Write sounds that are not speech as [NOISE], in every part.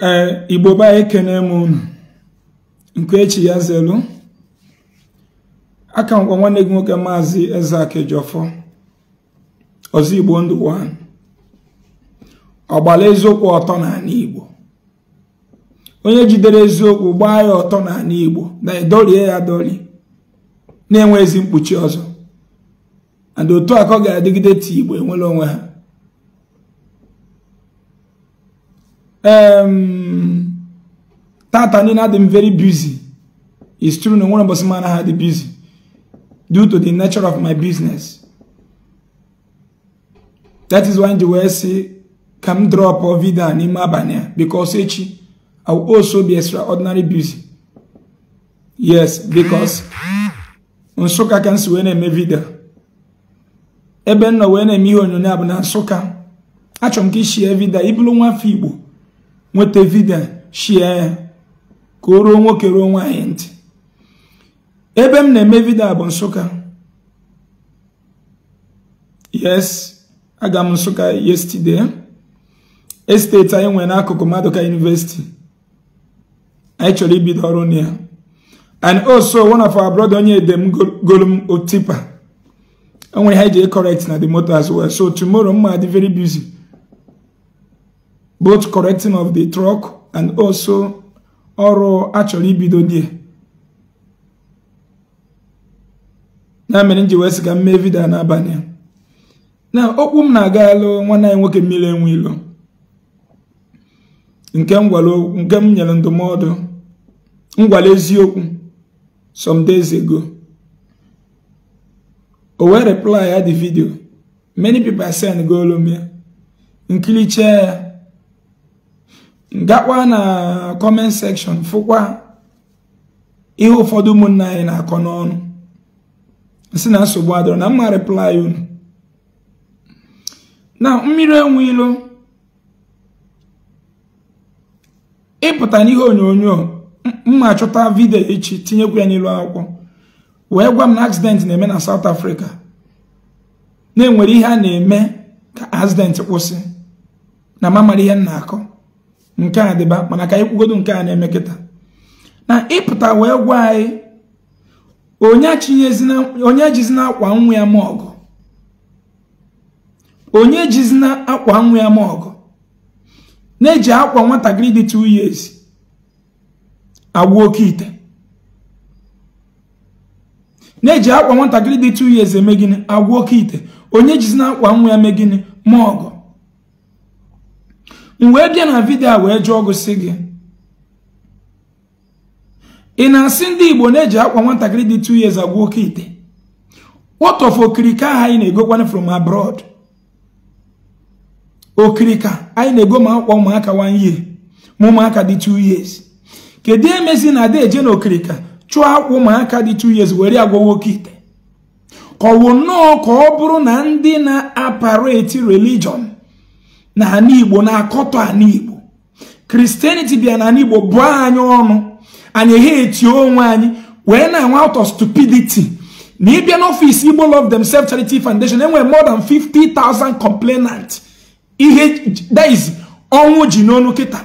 ee igbo be ekene m unu nke echi ya zelu aka ngwa nwanne gị nwoke maazị Ezeaku ọfọ ọzọ igbo ndụ ọgbala eziokwu ọtọ n'ala igbo onye jidere eziokwu gbaa ya ọtọ n'ala igbo na edorie ya dori na-enwe ezi mkpuchi ọzọ and otu aka ọ ga-adịgide ti igbo enwere onwe ha um, Tata Nina had them very busy. It's true, no one of us man had the busy due to the nature of my business. That is why they will say, come drop a video on Imabania because I will also be extraordinary busy. Yes, because Nsoka can see when I make video. Eben na when I make on your nab na Nsoka. Achom ki share video, ibulu nwa fi Igbo. nweta vidiyo shie ya ka o ruo nwoke ruo nwanyị ntị ebe m na-eme vidiyo bụ Nsụka yes aga m Nsụka yesterday esteti anyị nwere n'akụkụ Maduka University anyị chọrọ ibido ọrụ na ya and also one of our brother onye edem m otipa enwere ha iji correct na the motor as well so tomorrow mma dị very busy both correcting of the truck and also ọrụ achọrọ ibido die na mere nji wee sị ka m mee n'abalị na okwu m na-aga alụ nwanne anyị nwoke mmiri enwe nke m nke nyere ndụmọdụ ngwale eziokwu some days ago o wee reply ya the video many people send go m chee ya gakwa na comment section fụkwa ihe ụfọdụ ụmụnna anyị na-akọ n'ọnụ nsi na nsogbu adọrọ na mma reply unu na mmiri enwe ilo ịpụta n'ihe onyonyo mma chọta vidio echi tinyekwu ya n'ilu akwụkwọ wee gwa m na accident na-eme na South Africa na-enwere ihe a na-eme ka accident kwụsị na m amara ihe m na-akọ nke a dịba mana ka anyị kwugodo nke a na-eme kịta na ịpụta wee gwa anyị onye jizina akwa nwa ya ma ọgụ onye jizina akwa nwa ya ma ọgụ na-eji akwa nwatakịrị dị 2 years agwa oke ite na-eji akwa nwatakịrị dị 2 years eme gịnị agwa oke ite onye jizina akwa nwa ya mee gịnị ma ọgụ m wee bịa na vidio a wee jụọ gị gị ị na-asị ndị igbo na-eji akwa nwatakịrị dị 2 years agwa oke ite what of okirika ahụ anyị na-egokwana from abroad okirika anyị na-ego ma akwa ụmụaka one year ma ụmụaka dị 2 years kedu emezi na adị eje na okirika chụọ akwa ụmụaka dị 2 years were agwa oke ite kọwụ nnọọ ka ọ bụrụ na ndị na-apareti religion na ana igbo na akoto ana igbo kristianity bịa na ana igbo bụọ anyị ọnụ anyị eghe onwe anyị wee na anwa out of stupidity na ịbịa n'ọfịs igbo love themselves charity foundation enwere more than 50,000 complainant ihe daiz ọnwụ ji n'ọnụ kịta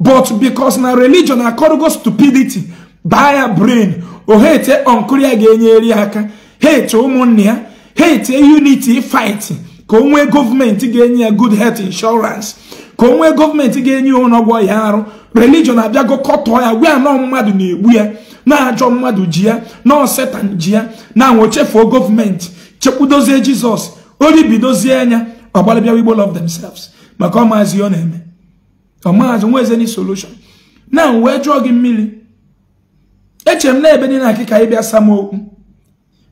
but because na religion akọrọgo stupidity baa ya brain o hete ọnkụrụ ya ga-enyere aka hete ụmụnne ya hete unity fighting ka o nwee gọọmenti ga-enye ya good health insurance ka o nwee gọọmenti ga-enye ya ọnọgwọ ya arụ religion abịago kọtọọ ya wee anọ mmadụ na-egbu ya na-ajọ mmadụ ji ya nọọ setan ji ya na anwochefuo gọọmenti chekwudozie jizọs oribidozie anya ọgbalịbịawa igbo love themselves maka ọmaazi ọ na-eme ọmaazi nweze ni solution na wee jụọ gị mmiri echere m na ebe dị na akịka ịbịa m okwu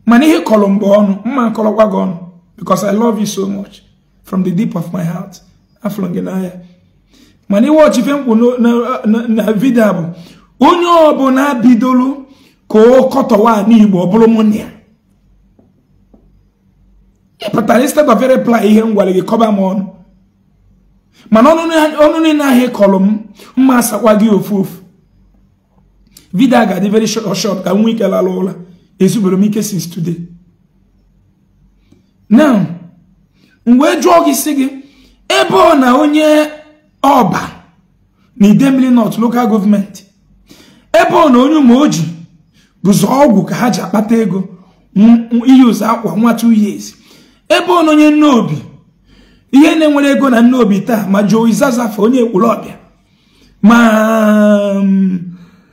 mana ihe kọrọ mgbe ọnụ mma kọrọkwa gị ọnụ because I love you so much from the deep of my heart. Aflongenaya. mana iwọchi ife mkpu na vidio bụ onye ọbụla bidolu ka kọtọwa n'igbo ọ bụrụ mụnne ya ịpụtara instead of reply ihe ngwale gị kọba m ọnụ mana ọnụ niile ahụ m mma asakwa gị ofu ofu vidal ga-adị very short ka m nwee ike lara ụla m since today now m wee jụọ gị si gị ebe ọ na onye ọba na idemili nọt local gọọmenti ebe ọ na onye ụmụ oji bụzọ ọgwụ ka ha ji akpata ego iyuzu akwa nwa 2 years ebe ọ na onye obi ihe na-enwere ego na nneobi taa ma jụọ onye ekwuru ọbịa ma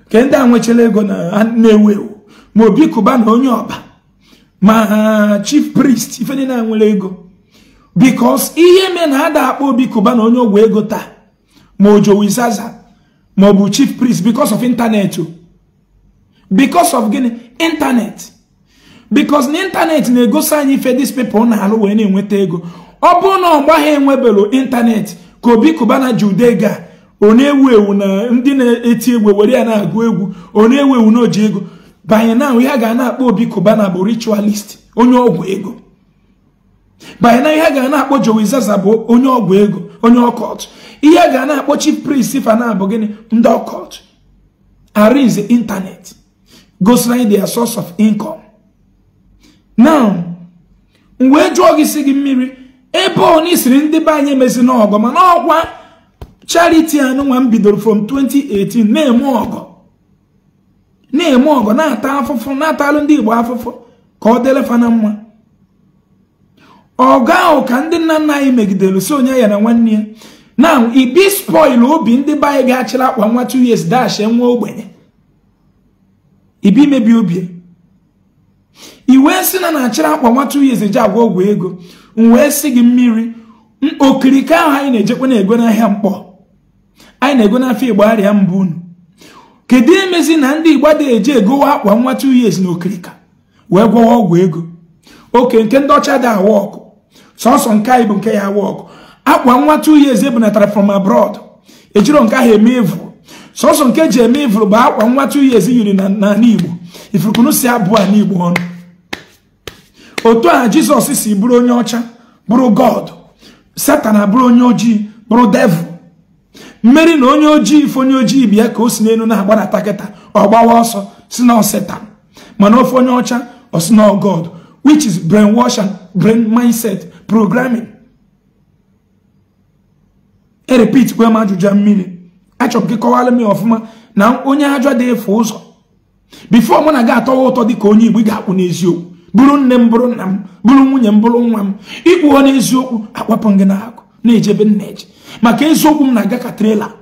ke ndị a nwechara ego na na-ewu ewu ma obi kụba na onye ọba ma chief priest ife niile nwere ego because ihe mee na ada akpa obi kụba na onye ogwe ego taa ma ojowi ma ọ bụ chief priest because of internet o because of gịnị intanet because na intanet na-egosi anyị ife dis people na-alụ wee na-enweta ego ọ bụrụ na ọgba ha enwebelu ka obi kụbana ji udega ọ na-ewu ewu na ndị na-eti egwu were ya na-agụ egwu ọ ewu ewu na oji ego banye na ihe a ga na-akpọ Obi Cubana bụ ritualist onye ọgwụ ego banye na ihe a ga na-akpọ Joey bụ onye ọgwụ ego onye ọkọt ihe a ga na-akpọ chi priest Fana bụ gịnị ndị ọkọt arinze intanet gosiri their source of income now wee jụọ gị si gị mmiri ebe ọ n'isiri ndị be anyị emezi n'ọgọ mana ọkwa chariti anụnwa m bidoro from 2018 na-eme ọgọ na-eme ọgọ na-ata afụfụ na-atalụ ndị Igbo afụfụ ka ọ delefa na mma ọgụ ahụ ka ndị nna nna anyị megidere so onye ya na nwanne ya na ibi spoil obi ndị be anyị ga-achịrị akpa nwa 2 years dash nwa ogbenye ibi mebi obi iwee si na na-achịrị akpa nwa 2 years eji agwa ọgwụ ego m wee sị gị mmiri okirike ahụ anyị na-ejekwa na-ego n'ahịa mkpọ anyị na-ego n'afọ Igbo arịa mbụ unu kedu emezi na ndị igbo dị eji egowa akwa nwa 2 years na okirika wee gwọwa ọgwụ ego oke nke ndị ọcha dị awa ọkụ sọsọ nke anyị bụ nke ya awa ọkụ akwa nwa 2 years ebunatara from abroad ejiro nke ahụ eme evụrụ sọsọ nke ji eme evụrụ bụ akwa nwa 2 years yiri n'ala igbo ifurukunu si abụọ a n'igbo ọnụ otu a jizọs si bụrụ onye ọcha bụrụ god satan abụrụ onye ojii bụrụ devụl. mmeri na onye ojii ife onye ojii bịa ka o si n'elu na-agbanata kịta ọ gbawa ọsọ si na ọseta mana ofe onye ọcha osi na god which is brainwash and brain mindset programming e repeat kwe m ajụjụ mmiri achọrọ m gị kọwara m ya ọfụma na onye ajọ dị efe ụzọ bifo mụ na gị atọwa ụtọ dị ka onye igbo ga-akwụ n'eziokwu bụrụ nne m bụrụ nna m bụrụ nwunye m bụrụ nwa m ịkwụọ n'eziokwu akpapụ gị n'akụ na-ejebe nna eje maka eziokwu m na-aga ka trela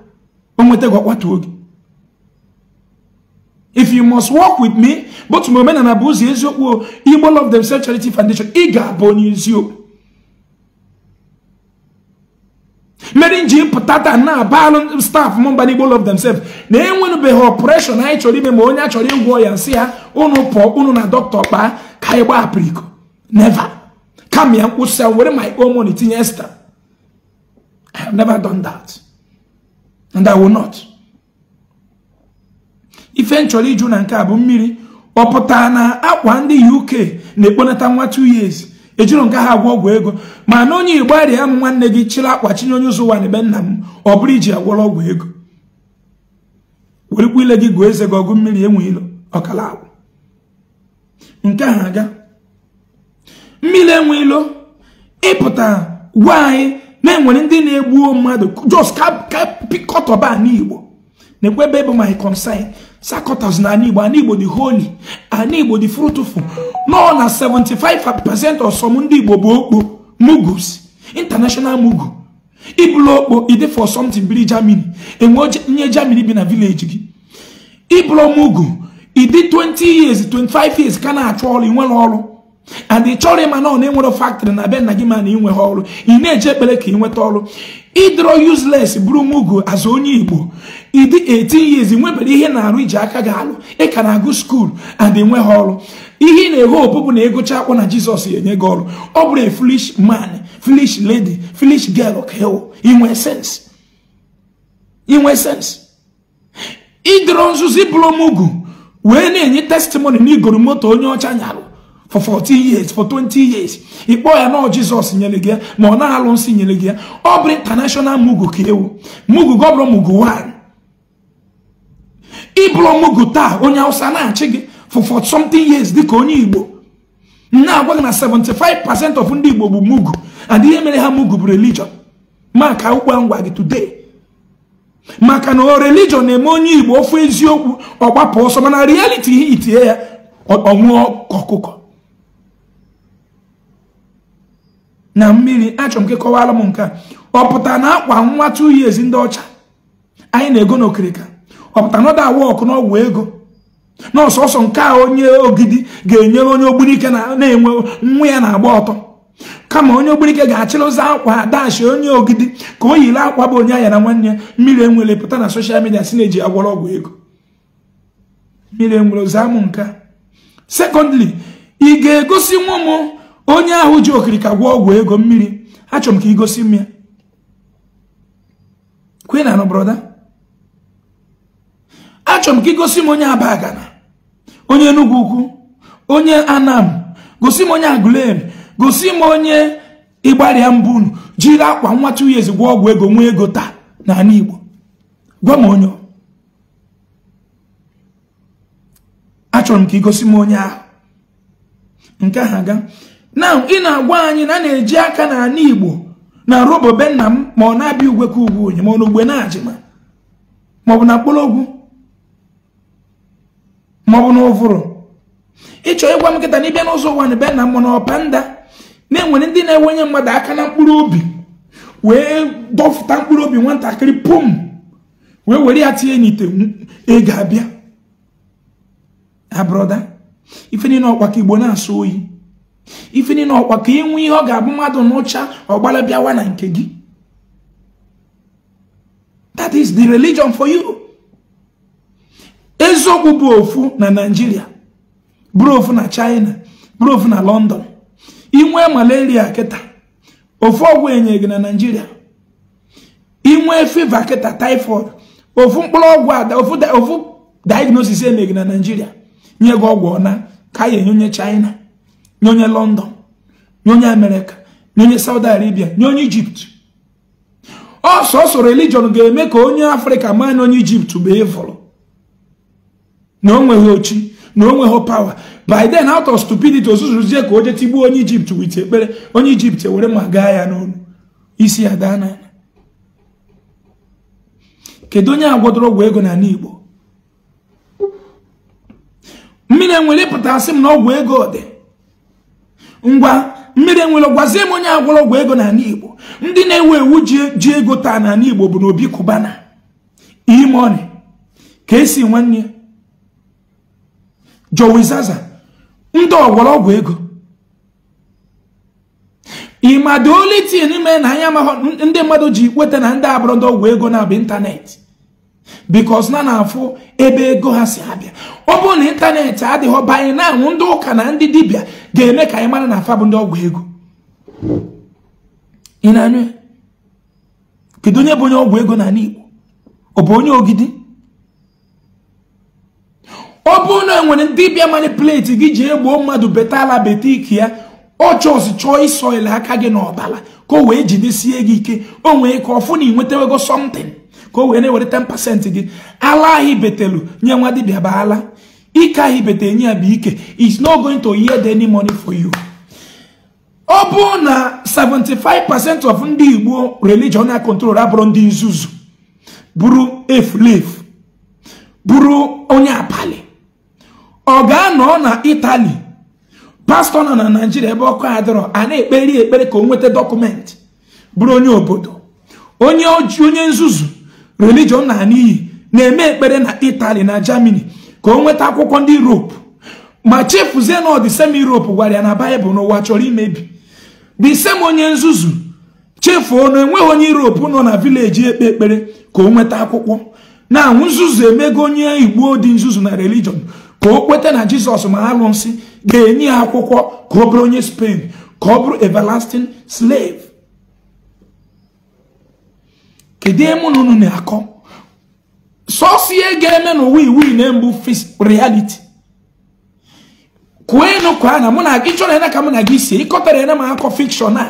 o nweta gị ọkwatuo oge if you must work with me but ma omenala bụ ụzọ eziokwu Igbo Love Themselves Charity Foundation ị ga-abụ onye eziokwu mere nji pụta taa na alụ staf mba na Igbo demsef na-enwenụbeghị ọpụreshọn anyị chọrọ ime ma onye achọrọ ịgwọ ya nsị ya ụnụ pụọ ụnụ na dọkịta kpaa ka anyị gbahapụrụ iko neva kama ya nkwụsị ya were my own money tinye sta I have never done that. And I will not. Eventually, June and Cabo Miri, ọ pụtara na akwa ndị UK na-ekponata nwa 2 years ejiri nke ha agwọ ọgwụ ego ma na onye Igbo m nwanne gị chịrị akwa chinye onye ụzọ ụwa na ebe nna m ọ bụrụ iji agwọrọ ọgwụ ego werikwa ile gị gụọ eze gị ọgụ mmiri enwe ilo ọkala agwụ nke ha aga mmiri enwe ilo ịpụta gwa anyị na enwere ndị na egbu mmadụ jos ka anị igbo na-ekwe ebe bụ my concern sakọtas na anị igbo dị holi anị dị fruitful nọ na 75% ọsọm ndị igbo bụ okpo mugus international mugu ịbụrụ okpo ide for biri germany enwe nye germany bi na village gị ịbụrụ mugu ịdị 20 years 25 years ka na-achọ ọrụ ị nwere ọrụ and ị chọrọ ịma na ọ na-enwero factory na be nna gị ma na inwe ha ọrụ ị na-eji ekpere ka ị nweta ọrụ idro useless bụrụ nwugo azụ onye igbo ịdị 18 years nwebere ihe na-arụ iji aka ga-alụ ị ka na-agụ skuul and nwe ha ọrụ ihe ị na eghe opu na ịgụcha akwụkwọ na jizọs enye gị ọrụ ọ bụrụ foolish man foolish lady foolish girl ka inwe sense inwe sense ịdọrọ nzuzi bụrụ wee na-enye testimony na igoro moto onye ọcha nyarụ for 40 years for 20 years ị kpọọ ya nọọ jizọs nyere gị ya ma ọ na-alụ nsị nyere ya ọ bụrụ international mugu ka ewu mugu gị ọ bụrụ mugu nwanyị ịbụrụ mugu taa onye hausa na-achị gị for for something years dịka onye igbo na-agwa gị na 75% of ndị igbo bụ mugu and ihe mere ha mugu bụ religion maka akwụkwọ ngwa gị today maka na o religion na-eme onye igbo ofu eziokwu ọ gbapụ ọsọ mana reality itinye ya ọnwụọ ọkụkọ na mmiri achọrọ m kọwara m nke a ọ pụtara na akwa nwa two ndị ọcha anyị na-ego n'okirika ọ pụtara na ọ da n'ọgwụ ego na ọsọsọ nke a onye ogidi ga-enyere onye ogbunike na-enwe nwa ya na-agba ọtọ kama onye ogbunike ga-achịrị ụzọ akwa dashi onye ogidi ka o yiri akwa bụ onye anya na nwanne ya mmiri enwere pụta na soshal midia si na-eji agwọrọ ọgwụ ego mmiri enwere ụzọ amụ nke sekọndịrị ị ga-egosi nwa m onye ahụ ji okirika gwa ọgwụ ego mmiri achọrọ m ka igosi m ya kwe na achọrọ m ka igosi m onye abagana onye enugwu ukwu onye anam gosi m onye agulen gosi m onye ịgbarịa mbụ jiri akwa nwa two years ọgwụ ego nwee ego taa na n'ala Igbo gwa m onye achọrọ m ka igosi m onye ahụ nke ahụ aga na ị na-agwa anyị na a na-eji aka na ala igbo na robo be nna m ma ọ na-abịa ugwe ka ugwu onye ma ọ na ugbe na-ajịma maọbụ na mkpụrụogwu maọbụ na ụvụrụ ịchọ ịgwa m nkịta na ịbịa n'ụzọ ụwa na be nna m mana nda na-enwere ndị na-enwenye mmadụ aka na mkpụrụ obi wee dọfụta mkpụrụ obi nwatakịrị pum wee were ya tinye n'ite ị ga-abịa abroda ife niile ọkwa ka igbo na-asụ oyi ife niile ọkwa ka ị nwee ihe ọ ga-abụ mmadụ n'ụcha ọgbala bịawa na nke gị that is the religion for you eziokwu bụ ofu na Nigeria bụrụ ofu na China bụrụ ofu na London inwee malaria kịta ofu ọgwụ enye gị na Nigeria inwee fiva kịta typhoid ofu mkpụrụ ọgwụ ada ofu diagnosis enye na Nigeria nye gị ọgwụ ọna ka ya enye onye China nye onye london nye onye amerịka nye onye saudi arabia nye onye ijipt ọsọsọ religion ga-eme ka onye afrịka maa na onye ijipt bụ ịvụrụ na o nweghị ochi na o nweghị pawa by then out of stupidity ozuzuzie ka o je tigbuo onye ijipt wit ekpere onye ijipt ewere ma gaa ya n'olu isi ya daa n'ala kedu onye agwọdoro ọgwụ ego n'ala igbo mmiri enwere ịpụta asị m na ọgwụ ego dị ngwa mmiri enwere gwazie m onye agwọrọ ọgwụ ego n'ala igbo ndị na-ewu ewu ji ego taa n'ala igbo bụ na obi kubana imoni ka esi nwanne jowizaza ndị ọgwọrọ ọgwụ ego ịma dị olitin na anya amaghọ ndị mmadụ ji kweta na ndị abụrọ ndị ọgwụ ego na-abụ ịntanetị bikos na na-afụ ebe ego ha si abịa ọ bụrụ na ịntanetị adịghị banye na anwụ ndị ụka na ndị dibịa ga-eme ka anyị mara na afa bụ ndị ọgwụ ego ị na-anụ kedu onye bụ onye ọgwụ ego n'ala Igbo ọ bụ onye ogidi ọ bụrụ na enwere dibịa manipuleti gị ji egbuo mmadụ beta ala beta ike ya ọchọsi chọọ isoile aka gị n'ọbala ka o wee jidesie gị ike o nwee ka ọfụ na ị nwetawego somtin ka o wee na-ewere 10% gị ala ahụ betelu nye nwa dibịa bụ ala ike ahụ ibete nye ya bụ ike is no going to yield any money for you ọ bụ na 75% of ndị igbo religion na control abụrụ ndị nzuzu bụrụ efulefu bụrụ onye abalị ọ ga-anọ na itali pastọ nọ na naijiria ebe ọkụ adịrọ a na-ekperi ekpere ka o nweta dọkụmentị bụrụ onye obodo onye nzuzu religion na n'iyi na-eme ekpere na Italy na Germany ka o nweta akwụkwọ ndị Europe ma chefuzie na ọdịsem Europe gwara ya na Baịbụl n'ụwa chọrọ imebi disem onye nzuzu chefuo na enweghị onye Europe nọ na vileji ekpe ekpere ka o nweta akwụkwọ na nzuzu emego onye Igbo dị nzuzu na religion ka o kweta na Jizọs ma arụsị ga-enye ya akwụkwọ ka ọ bụrụ onye Spain ka ọ bụrụ everlasting slave kedu emu na unu na-akọ sọsọ ihe ga-eme n'ụwa iwu na mbụ reality kwuo enu kwa na mụ na gị chọrọ ena ka mụ na gị si ịkọtara ena m akọ fikshọn a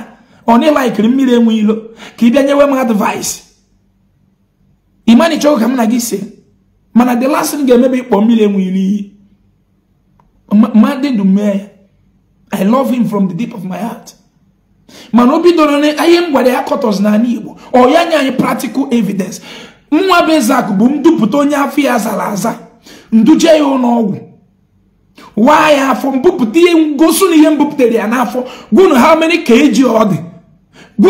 ọ na ịlaikiri mmiri enwe ilo ka ị bịa nyewe m advaịs imani chọrọ ka mụ na gị si mana the last thing ga-emebe ịkpọ mmiri enwe ilo iyi mmadụ ndụ mee i love him from the deep of my heart mana o bidoro na ihe m gwara ya kọtọs n'ala Igbo ọ ya nye anyị praktikal evidens nwa bụ bụ ndupụta onye afọ ya zara aza nduje ya ụlọọgwụ waa ya afọ mbupụta ihe ngosu na ihe m ya n'afọ gwunu ha mere ka eji ọ dị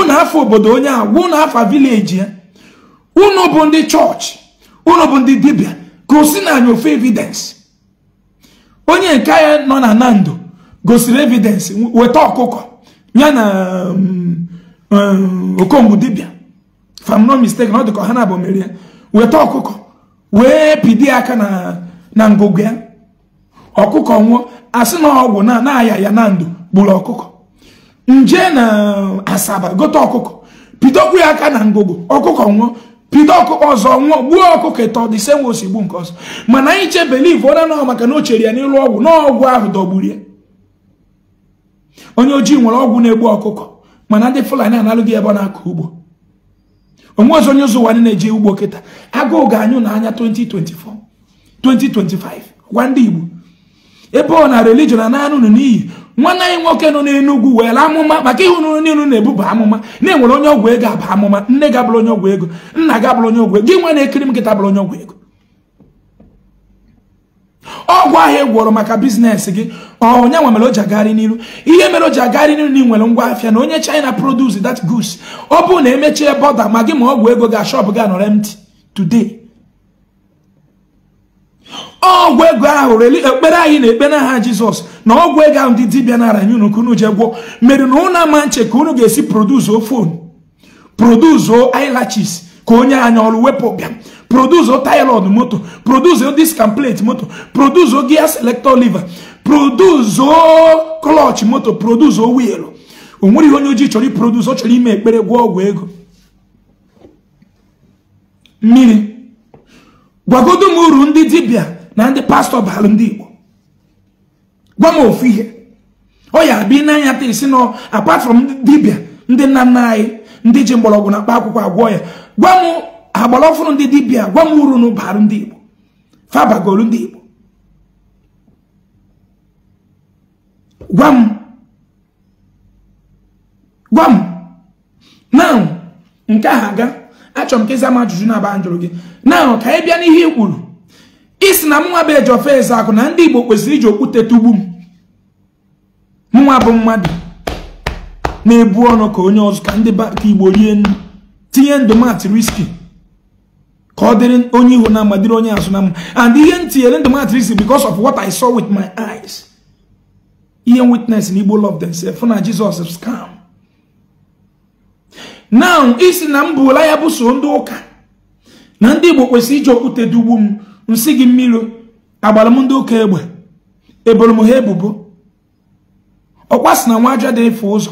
na afọ obodo onye ahụ gwunu afọ vileji ya unu bụ ndị chọọchị unu bụ ndị dibịa gosi na anyị ofe evidens onye nke ya nọ na nando gosiri evidensị weta ọkụkọ ya na okombụ dibịa if no mistake na ọ dị ka ha na-abụ mere ya weta ọkụkọ wee pidi aka na ngụgụ ya ọkụkọ nwụọ asị na ọgwụ na na-aya ya na ndụ gburu ọkụkọ nje na asaba gote ọkụkọ pidokwu ya aka na ngụgụ ọkụkọ nwụọ pido ọkụkọ ọzọ nwụọ gbuo ọkụkọ ịtọ dị senwe osigbu nke ọzọ mana anyị chebeliv ọ na nọ maka na o chere ya n'elu ọgwụ n'ọgwụ ahụ dọgburu ya onye ojii nwere ọgwụ na-egbu ọkụkọ mana ndị fulani analụghị ebe ọ na-akọ ugbo onwe ọzọ onye ụzọ ụwa na-eje ugbo kịta agụụ ga-anyụ n'anya 2024 2025 gwa ndị igbo ebe ọ na religion na naanị n'iyi nwanne anyị nwoke nọ n'enugwu were amụma maka ihe unu niile na-ebuba amụma na-enwere onye ọgwụ ego aba amụma nne ga-abụrụ onye ọgwụ ego nna ga-abụrụ onye ọgwụ ego gị nwa na-ekiri m nkịta bụrụ onye ọgwụ ego ọgwụ ahịa ị e gwọrọ maka biznes gị onye nwa mere o ji agagharị n'iru ihe mere o ji agagharị n'iru na ị nwere ngwa afịa na onye china produce that goods ọ bụrụ na emechie bọda ma gị ma ọgwụ ego ga ashọp gị anọrọ empty today ọgwụ ego ahụ reli ekpere anyị na ekpere aha jizọs na ọgwụ ego ahụ ndị dibịa nara nye unu ka unu gwọ mere na unu ama nche ka unu ga-esi produzuo fon o ilaches ka onye anya ọrụ wepụ bịa produza taya moto produza diskan plate moto produza gia selector liver produzuo klọch moto produza wiil o onye ojii chọrọ produza ọ chọrọ ime ekpere gwụọ ọgwụ ego mmiri gwagodo m uru ndị dibịa na ndị pastọ baalụ ndị igbo gwa m ofu ihe ọ ya bi n'anya taa isi nọ apart from dibịa ndị nna nna anyị ndị ji mgbọrọgwụ na mkpa akwụkwọ agwọ ya gwa m ha gbara ọfụrụ ndị dibịa gwa m uru n'ụbarụ ndị igbo fabagolu ndị igbo gwa m gwa m na nke ahụ aga achọrọ m ka ịza ajụjụ na-aba njụrụ gị na ka ebịa bịa n'ihe i kwuru isi na mnwa bụ eji ofe eze akụ na ndị igbo kwesịrị iji okwute tugbu m nwa bụ mmadụ na-ebu ọnụ ka onye ọzọ ka ndị ka igbo rie nri tinye ndụ ka dịrị onye ihu na mma dịrị onye azụ na mma and ihe ntinyere tinyere ndụ m because of what i saw with my eyes ihe witness na igbo love themselves fụ na jizọs scam now isi na m bụla ya bụ so ndị ụka na ndị igbo kwesịrị iji okwute dugbu m nsị gị mmiri agbara m ndị ụka egbe eboro m ha ebubo ọkwa na nwa dị efe ụzọ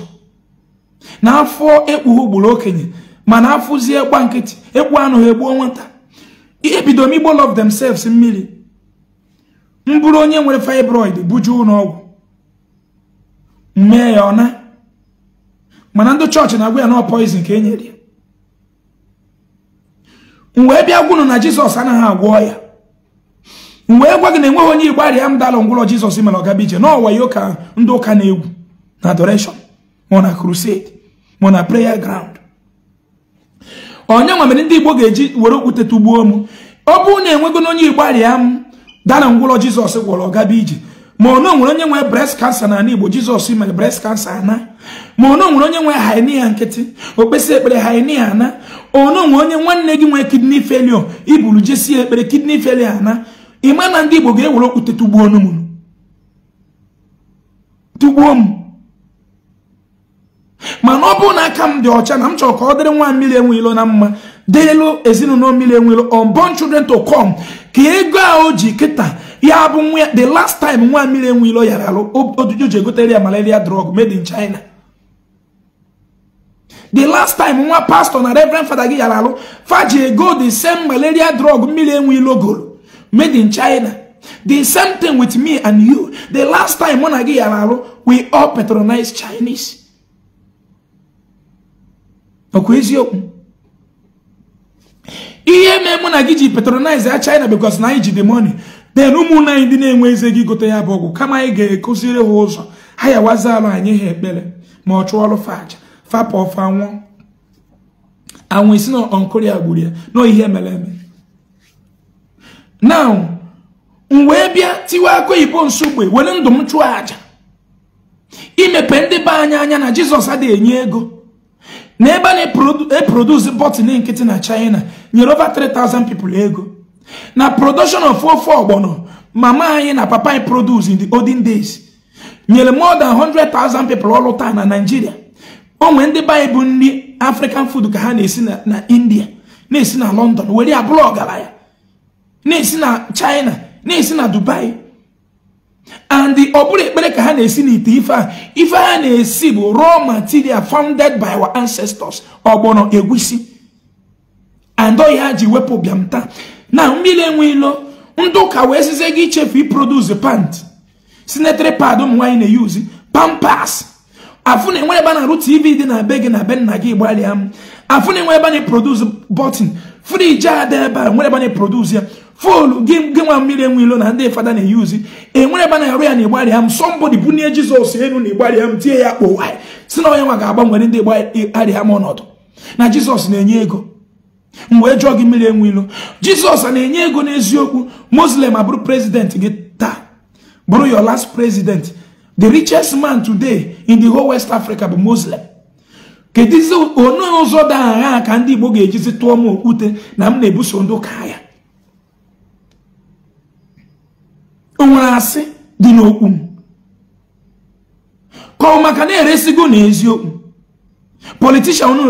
na afọ ekpughe ugboro okenye mana afụzie gba nkịtị ekpu anụ ha egbuo nwata ihe bido m igbo love themselves mmiri m bụrụ onye nwere fibroid bujuo ụlọọgwụ mee ya ọna mana ndị chọọchị na-agwa ya na poison ka e nyere ya wee bịa gwunu na jizọs anaghị agwọ ya wee gwa gị na enweghị onye igbo arịa m dalụ ngwụlọ jizọs mere ọgaba ije ọwa ya ụka ndị ụka na-egwu na adoration ma na crusade ma na prayer ground onye nwa mere ndị igbo ga-eji were okwute tụgbuo m ọ bụrụ na enwego na onye igbo arịa m dana ngwụrọ jizọs gwọrọ gaba ije ma ono nwere onye nwere breast cancer na ala igbo jizọs mere breast cancer ana ma ono nwere onye nwere hernia nkịtị okpesi ekpere hernia ana ono nwere onye nwanne gị nwere kidney failure iburu jesie ekpere kidney failure ana ịma na ndị igbo ga-ewere okwute tụgbuo m mana ọ bụrụ na aka m dị ọcha na m chọrọ ka ọ dịrị nwa mmiri enwe ilo na mma dịrịlụ ezinụlọ mmiri enwe ilo unborn children to come ka ego a o ji kịta ya bụ nwa the last time nwa mmiri enwe ilo yara alụ ji egotere ya malaria drug made in China the last time nwa pastọ na reverend fada gị yara alụ faji ego the same malaria drug mmiri enwe ilo golo made in China the same thing with me and you the last time mụ na gị yara alụ we all patronize Chinese ọkwa eziokwu ihe mee mụ na gị ji patronize a China because na anyị ji the money then ụmụnne anyị ndị na-enwe eze gị gote ya bụ ọgwụ kama anyị ga-ekụziri ha ụzọ ha yawazi alụ anyị ha ekpere ma ọ chụọ ọrụ faja fapa ọfa nwụọ anwụ isi na onkoria ya na ihe mere eme now m wee bịa tiwe aka oyibo nsogbe were ndụ m chụọ aja imepe ndị be anyị anya na Jizọs adịghị enye ego na ebe na eproduce bọtịn nkịtị na china nyere over 3000 people ego na production of ofe ọgbọnọ mama anyị na papa anyị produce in the olden days nyere more than 100,000 people ọlụ taa na Nigeria onwe ndị be bụ nri African food ka ha na-esi na India na-esi na London were ya bụrụ ọgaranya na na China na-esi na Dubai and ọ bụrụ ekpere ka ha na-esi n'ite ife a ife ha na-esi bụ raw material founded by our ancestors ọgbọnọ egwusi and ọhịa ji wepụ bịam taa na mmiri enwe ilo ndụ ụka wee sizie gị ichefu iproduce pant sinetary pad ụmụ nwaanyị na-eyuzi pampas afụ na ebe a na-arụ tv dị na be gị na be nna gị gbalịa m afụ na enwe ebe a na-eproduce bọtịn friji ada ebe a nwere ebe a na-eproduce ya folu gị nwa mmiri enwe ilo na ndị fada na-eyuzi enwere ebe na-arụ ya na ịgbarịa m sọmbọdị bunye jizọs elu na ịgbarịa m tie ya kpọwa si na onye nwa ga-agbanwere ndị gbarịa m ọnọdụ na jizọs na-enye ego m wee jụọ gị mmiri enwe ilo jizọs na-enye ego n'eziokwu moslem abụrụ prezidenti gị taa bụrụ your last president the richest man today in the whole west africa bụ moslem kedizi onye oh, ụzọ dị agha ah, ka ndị igbo ga-ejizi tụọ m okwute na m na-ebuso ndị ụka ya nwere asị dị n'okwu m ka ọ maka na-eresigo n'eziokwu politishan unu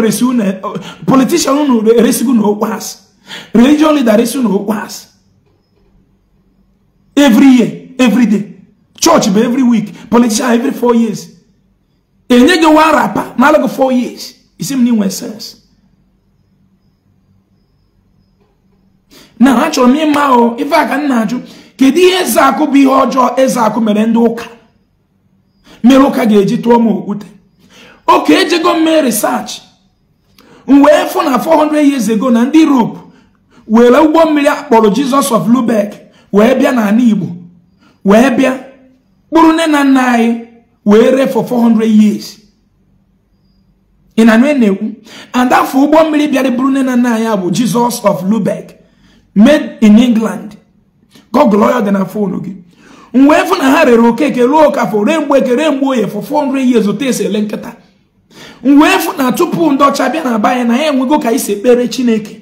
eresigo na okwu asị religion leader eresigo na asị every year every day church bụ every week politician every four years enye gị wa rapa n'alago four years isi m na inwe sense na achọrọ m ịma o ife a ka m na-ajụ kedu ihe eze akụ bụ ihe ọjọọ eze akụ mere ndị ụka mere ụka ga-eji tụọ m okwute oke ejego mme risaachị m wee fụ na 400 years ago na ndị iroopu were ụgbọ mmiri akpọrọ Jizọs of Lubeck wee bịa n'ala Igbo wee bịa kpụrụ nne na nna anyị wee ree for 400 years ị na nwe na-ekwu afọ ụgbọ mmiri bịara bụrụ nne na nna anyị bụ Jizọs of lubek made in England gọgụlụ ọya dị na foonu gị mgbe efu na ha rere okeke ruo okafọ ree mgbe ekere mgbe oye for 400 years otu esi ele nkịta mgbe efu na tupu ndị ọcha bịa na-aba na ya enwego ka isi ekpere chineke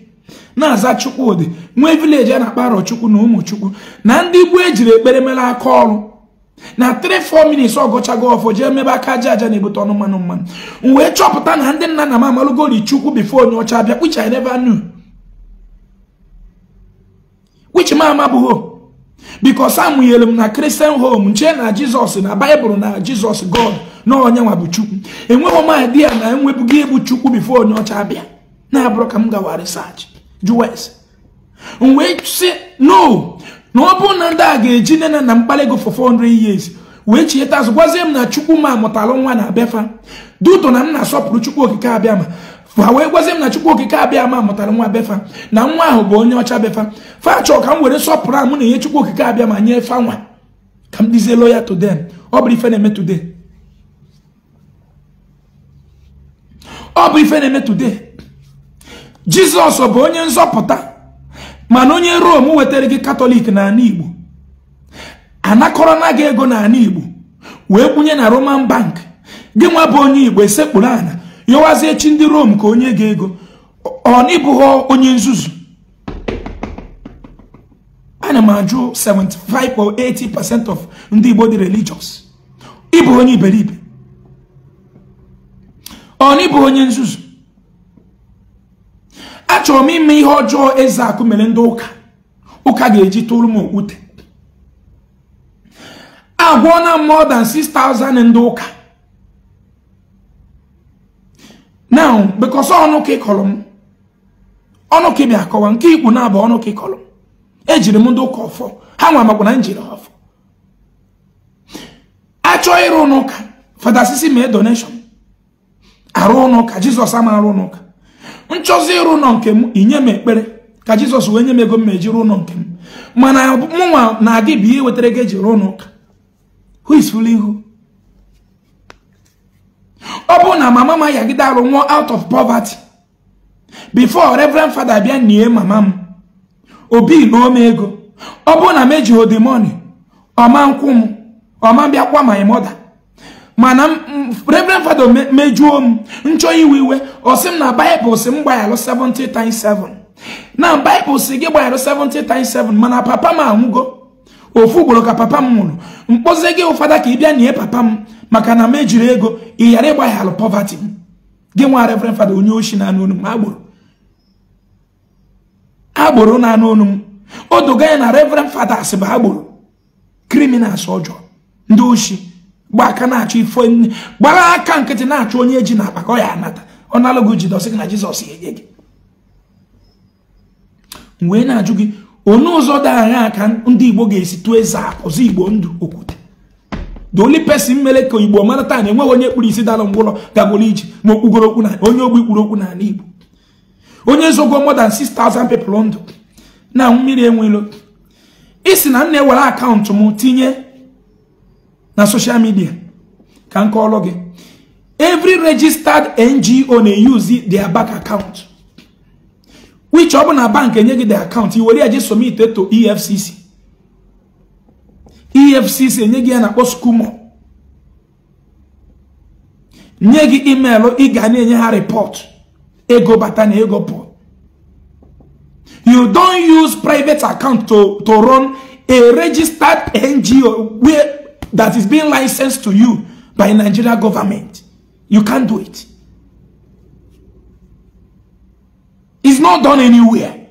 na-aza ụdị nwee vileji a na-akpa chukwu na ụmụchukwu na ndị igbo ejiri ekpere mere aka ọrụ na 3-4 minutes ọgọchago ọfọ jee mebe aka aja aja na-ebute ọnụ mmanụ mmanụ wee chọpụta na ndị nna na m amalụgori chukwu bifo onye ọcha bịa which I never knew which m bikos amụnyere m na kristian hom nche na jizọs na baịbụl na jizọs god na onye nwa bụ chukwu enweghị m idea na enwebughị ịbụ chukwu bifo onye ọcha abịa na-abụrụ ka m gawa risaachị m wee sị no na ọ bụrụ na ndị a ga-eji nne na nna m kpalị 400 years wee chieta azụ gwazie m na chukwu ma amụtalụ nwa na abịafa duto na m na-asọpụrụ chukwu okike abịa ma ha wee gwazi m na chukwu okike abịa ama mụtara nwa befa na nwa ahụ bụ onye ọcha befa fachọ ka m were sọpụrụ amụ na ihe chukwu okike abịa ma nye fa nwa ka m dizie ya today ọ bụ ife na-eme today ọ bụ ife na-eme jizọs bụ onye nzọpụta mana onye rom wetara gị katọlik n'ala igbo anakọrọ na gị ego n'ala igbo wee kwunye na roman bank gị nwa bụ onye igbo esekpụrụ ana yọwazie chi ndị rom ka onye ga-ego ọ n'ịbụghọ onye nzuzu ana m ajụ 75 or 80 of ndị Igbo dị religious ịbụ onye iberibe ọ onye nzuzu achọrọ m ime ihe ọjọọ eze akụ mere ndị ụka ụka ga-eji tụrụ m okwute agwọna na more 6,000 ndị ụka now because ọnụ ka ịkọrọ m ọnụ ka akọwa nke ikpu na-abụ ọnụ ka ịkọrọ m ejiri m ndị ụka ọfọ ha nwa makwa na njiri ha ọfọ achọọ ịrụ fada sisi me donation arụ n'ụka Jisọs ama arụ n'ụka nchọzi ịrụ ụnọ nke m inye m ekpere ka jizọs wee nye m ego m ma ejiri ụlọ nke mana mụnwa na gị bụ ihe wetara gị eji rụọ n'ụka who is fooling who ọ na mama m ayagide arụ nwụọ out of poverty before reverend father bịa nie mama m obi lụọ m ego ọ bụ na m odemoni money ọma nkwụ m ọma bịakwa my mother mana reverend father mejuo m nchọ iwe iwe ọ sị m na baịbụl si m gbayalụ 70 times 7 na baịbụl si gị gbayalụ 7 mana papa m anwụgo ofu ugboro ka papa m nwụrụ mkpozi gị ụfada ka ị bịa nie papa m maka na m ejiri ego ị ghara ịgbaghalụ pọvatị m gị nwa reverend fada onye ochi na anụ m agbụrụ agbụrụ na anụ onu m o doga ya na reverend fada asị bụ agboro kriminals ọjọọ ndị oshi gba aka na-achọ ife gbara aka nkịtị na-achọ onye e ji na akpa ya anata ọ nalụgo jidọsị gị na jizọs enye gị wee na-ajụ gị onye ụzọ dị anya ka ndị igbo ga-esi tụọ eze apụzi igbo ndụ okwute the only person mere ka igbo mara taa na enweghị onye kpuru isi dara mgbụrọ gagoro iji ma okpugoro okwu na onye ogbi kpuru okwu ala igbo onye zogo more than 6000 people ndụ na mmiri enwelo isi na m na-ewere akaụntụ m tinye na social midia ka m kọọrọ gị evry registered ngo na-eyuzi their bank account which ọ bụ na bank enye gị the account i were ya ji somite to efcc efcc enye gị ya na-akpọ skumo nye gị emailụ ị ga na-enye ha report ego bata na ego pụọ you don't use private account to, to run a registered ngo where that is being licensed to you by nigeria government you can't do it it's not done anywhere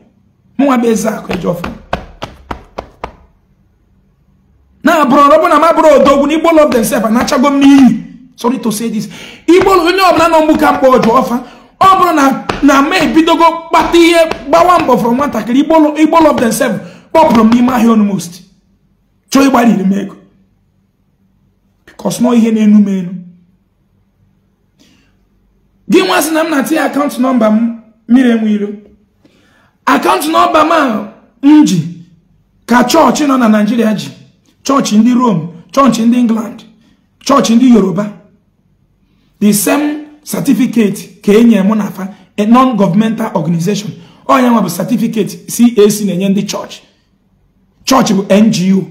mụ nwa bụ eze akụ eji na abụrọ ọbụna ma bụrụ odogwu igbo love themselves anachago m n'iyi sorry to say this onye ọbụla nọ mgbu ka mkpa ọjọọ ọfa ọ bụrụ na na ma ebidogo kpata ihe gbawa mbọ nwatakịrị igbo themselves kpọpụrụ m n'ime ahịa most chọọ ịgbariri m ego because ihe na-enu m na m na-atinye akaụntụ nọmba m mmiri akaụntụ nọmba m ji ka chọọchị nọ na naijiria ji chọọchị ndị Rome chọọchị ndị England chọọchị ndị Yoruba the same certificate ka e nye mụ na afa non-governmental organization onye nwa bụ certificate CAC na-enye ndị chọọchị chọọchị bụ NGO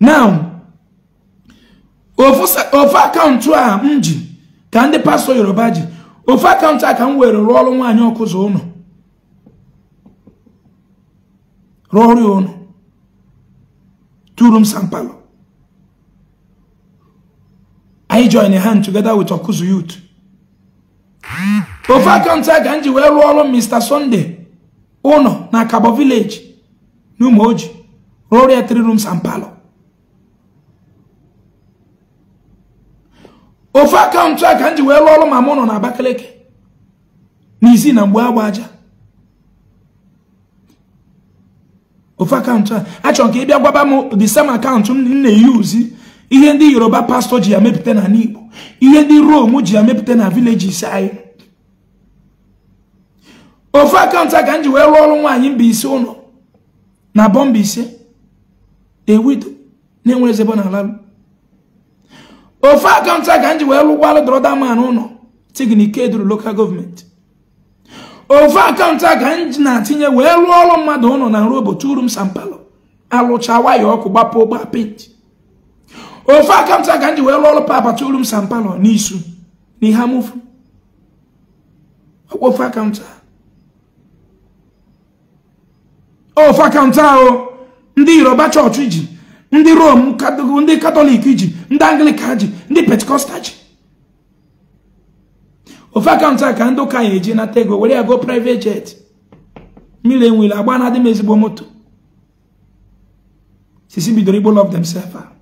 now ofu akaụntụ a m ji ka ndị pastọ Yoruba ji ofu akaụntụ a ka m were rụọ ọrụ nwaanyị ọkụzụ rụọ ọrụ ya ụlọ two rooms and parlor. i join hand together with Okuzu youth ofe akaụntụ a ka m ji Mr Sunday uno na Kabo village n'Umoji rụọrọ ya three rooms and parlor ofe akaụntụ a ka m ji wee rụọ ọrụ ma na Abakaliki na isi na mgbe agba aja ofu akaụntụ a achọrọ m ka ị bịa gwaba m the same akaụntụ m na-eyuzi ihe ndị yoruba pastọ ji ya mepụta na n'igbo ihe ndị rom ji ya mepụta na vileji anyị ofu akaụntụ a ka m ji wee rụọ ọrụ nwaanyị Mbaise ụlọ na bọmba ise ewido na-enwere ezebo na ala ofu akaụntụ a ka m ji wee rụgwalụ dọrọda man ụlọ tignikeduru lokal gọọmenti ofu akaụntụ a ka m na-atinye wee rụọ ọrụ mmadụ ụnọ na nrobo m sampalo alụcha waya ọkụ gbapụ gba penti ofu akaụntụ a ka m ji wee rụọ ọrụ papa m sampalo n'isu na ihe amụfu ọkwa ofu akaụntụ a ofu akaụntụ ahụ ndị yoruba chọọchị ji ndị rom ndị katọlik ji ndị anglika ji ndị pentikọstal ji ofe akaụntụ a ka ndị ụka ya eji nata ego were ya go private jet mmiri enwere agba na adị ezigbo moto sisi bidoro igbo lọf themselves a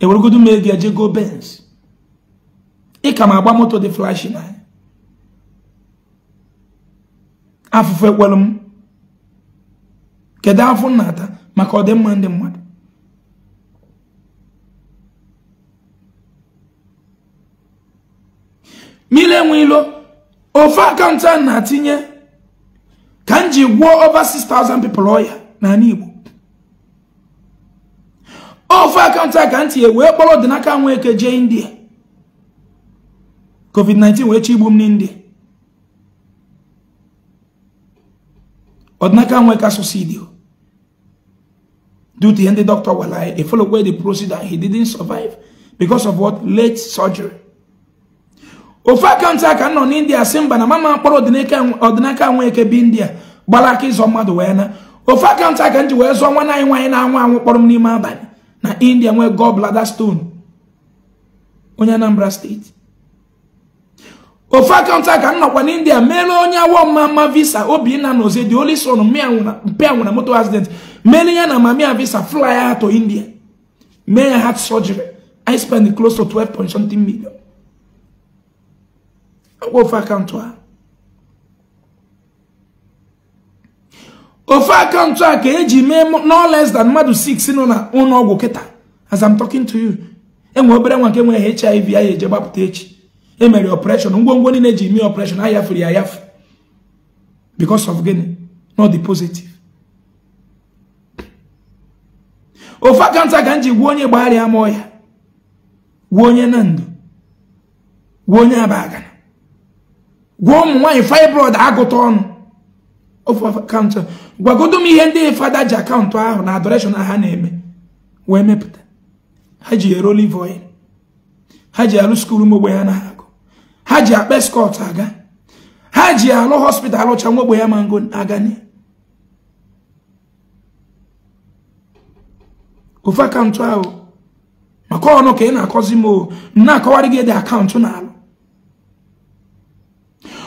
eweregodu m ego eje go bens ịka ma agba moto dị flash na ya afụfụ ekwelu m kedu afọ nnata maka ọdịmma ndị mmadụ ele enwe ilo ofu akaụntụ a na-atinye ka m ji gwuo over 6,000 people ọya n'ala Igbo ofu akaụntụ a ka m tinye wee kpọrọ ọdịnaka nwa eke jee India COVID-19 wee chigbu m n'India ọdịnaka nwa eke asụsụ idio due to ihe ndị dọkịta gwara ya efolokwe the procedure he didn't survive because of what late surgery ofu akaụntụ aka nọ n'india si mba na mama mkpọrọ ọdịnaka nweke bi india gbara aka ịzọ mmadụ wee na ofu akaụntụ aka m ji wee zụọ nwana anyị nwaanyị na-anwụ anwụ kpọrọ m n'ime abalị na india nwee blada stone onye anambra steeti ofu akaụntụ aka m n'india mere onye awọ mma mma visa obinna na oze dị oli son mpịa nwụna moto accident mere ya na mamia visa fly ya to india mee ya heart surgery i spend close to 12 point something million ofe akaụntụ a ofe akaụntụ a ka eji mee no less than mmadụ 6 nọ na ụlọ ọgwụ kịta as I'm talking to you enwe obere nwa nke nwere HIV a eje gbapụta echi emere operation ngwongwo niile eji mee operation ayafere ya yafu because of gịnị not the positive ofe akaụntụ a ka m ji gwuo onye gbagharịa ma ọya gwuo onye na ndụ gwuo onye aba agana gwa ụmụ nwaanyị fibroid agụta ọnụ ofu akaụntụ gwagodo m ihe ndị fada ji akaụntụ ahụ na adoreshọn ha na-eme wee mepụta ha ji ere olive oil ha ji alụ skuul ụmụ ya na agụ ha ji akpa skọt aga ha ji alụ hospital ọcha nwa ogbenye mango aga ofu akaụntụ ahụ maka ọnụ ka ị na-akọzi m m na-akọwarị gị dị akaụntụ na alụ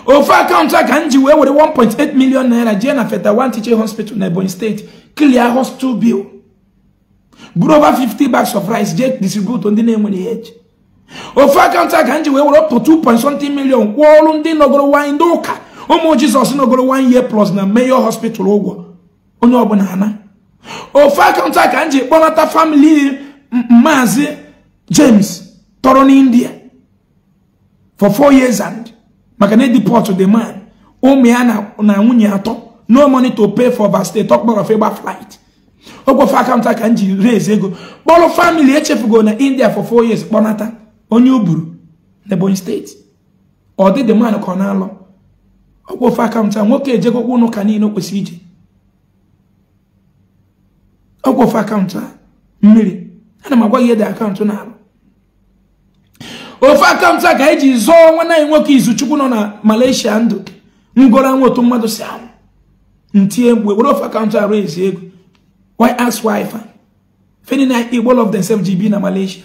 ofu akaụntụ a ka m ji wee were 1.8 million naira jee na feta one Teaching Hospital na Ebonyi steeti clear hospital bill buru over 50 bags of rice jee distribute ndị na-enwere ihe eji ofu akaụntụ a ka m ji wee were ọpụ million kwụọ ọrụ ndị nọgoro nwanyị ndị ụka ụmụ Jizọs nọgoro nwanyị plus na Mayor Hospital ụgwọ onye ọbụla ana ofu akaụntụ a ka m ji kpọnata famili maazị James tọrọ n'India for four years and maka na edeport the man ụmụ ya na nwunye atọ no money to pay for overstay talk about of ịgba flight okwofe akaụntụ aka m ji raise ego kpọrọ family echefugo na india for four years kpọnata onye o buru n'ebonyi steeti ọ dị the man ka ọ na-alụ okwofe akaụntụ a nwoke ejegokwa ụnụ ka niile o kwesịrị ije okwofe akaụntụ a mmiri ana m agwa gị ede akaụntụ na-alụ ofe akaụntụ a ka eji zọọ nwanne anyị nwoke izu chukwu nọ na Malaysia ndụ dị ngoro otu mmadụ si anwụ ntie mgbe were ofe akaụntụ arụ ezi ego why ask why fa feni na igbo of the same gb na Malaysia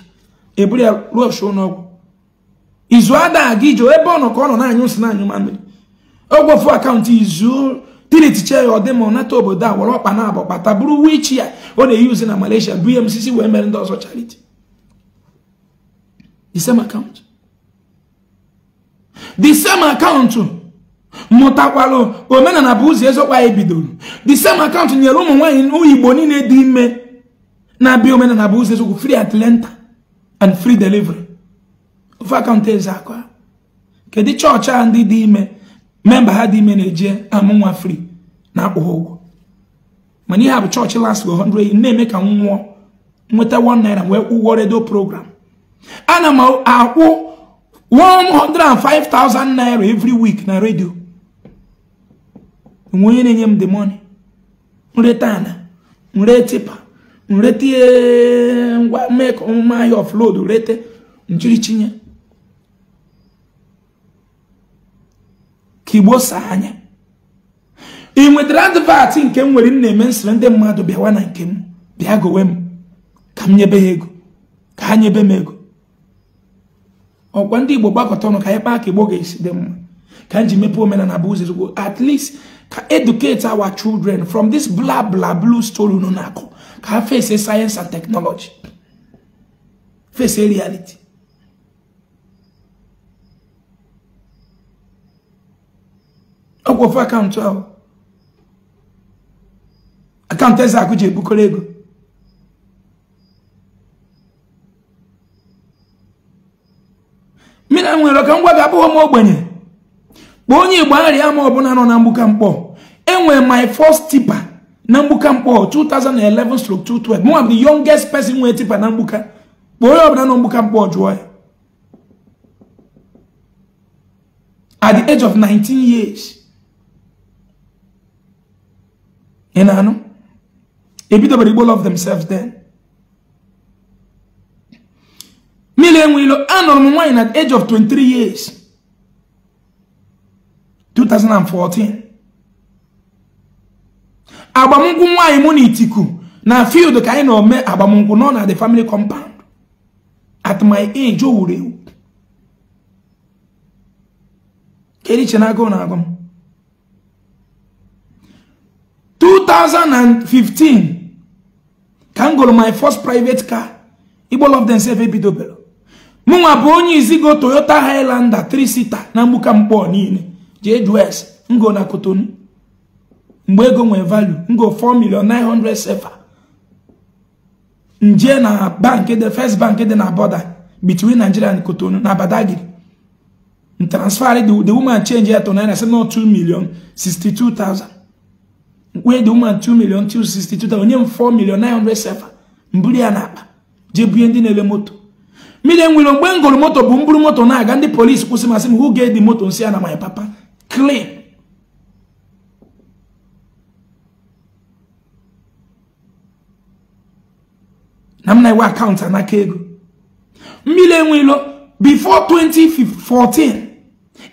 eburu ya ruo ọsụ n'ọgwụ izu ada gị jụọ ebe ọ nọ ka ọ nọ na-anyụ nsị na-anyụ ogwe ofu akaụntụ izu diritiche ya ọ dị ọ nata obodo a were ọkpa na abọ kpata bụrụ wichi ya ọ na-eyuzi eyi na Malaysia bụ ihe m sisi wee mere ndị ọzọ charity The same account. The same account mụtakwalụ omenala bụ ụzọ ezokwa anyị bidoro the same account nyere ụmụ nwaanyị igbo niile dị ime na-abịa omenala bụ ụzọ ezokwu free atlanta and free delivery ofe akaụntụ eze aka kedu chọọchị a ndị dị ime memba ha dị ime na-eje amụ nwa free na-akwụ ha ụgwọ mana ihe a bụ chọọchị last 100 na-eme ka m nwụọ nweta 1 naira wee ụgwọ redio program ana m akwụ 105,000 naira every week na redio nwe onye na-enye m the money nreta ana nre tipa nreta ngwa mek omume ahịa offload rete ka igbo anya ị nwetara advat nke m nwere na-eme nsire ndị mmadụ bịawa na nke m bịa gowe m ka m nyebe ha ego ka ha nyebe m ego ọkwa ndị igbo gbakọta ọnụ ka anyị kpaa ka igbo ga-esi dị mma ka m ji mepee omenala bụ ụzọ ezigbo at least ka educate our children from this bla bla blue story unu na-akụ ka ha face science and technology face reality ọkwa ofe akaụntụ ahụ akaụntụ eze akụ ji ebukọrọ ego mmiri nwere ka ngwa gị abụghị m ogbenye kpọọ onye igbo arịa ma ọbụla nọ na mgbuka mkpọ enwere my first tipa na mgbuka mkpọ 2011 stroke 212 mụ bụ the youngest pesin nwere tipa na mgbuka kpọ onye ọbụla nọ mgbuka mkpọ jụọ ya at the age of 19 years ị na-anụ mmiri enwe ilo anụrụ m nwaanyị na age of 23 years 2014 agbamnkwụ nwaanyị mụ na itiku na field ka anyị na-ome agbamnkwụ nọ na the family compound at my age o wuru ewu kedu iche na-agụ na agụ m 2015 ka m gụrụ my first private car igbo love themselves ebidobelu mụnwa bụ onye izigo toyota highlander 3 na mgbuka mkpọ niile jee jus ngo na kotonu mgbe ego nwee valu ngo 4 million 900 sefa nje na bank the first bank dị na border between nigeria na kotonu na badagiri transfer the, woman change ya to naira say no 2 million 62000 where the woman 2 million 262000 onye m 4 million 900 sefa mbuli ya na akpa jee bunye ndị na-ele moto mmiri enwere mgbe m gụrụ moto bụ mburu moto na-aga ndị polisi kwụsị masị m who gave the moto nsị ya na my papa clean na m na akaụntụ anaka ego mmiri enwelo before 2014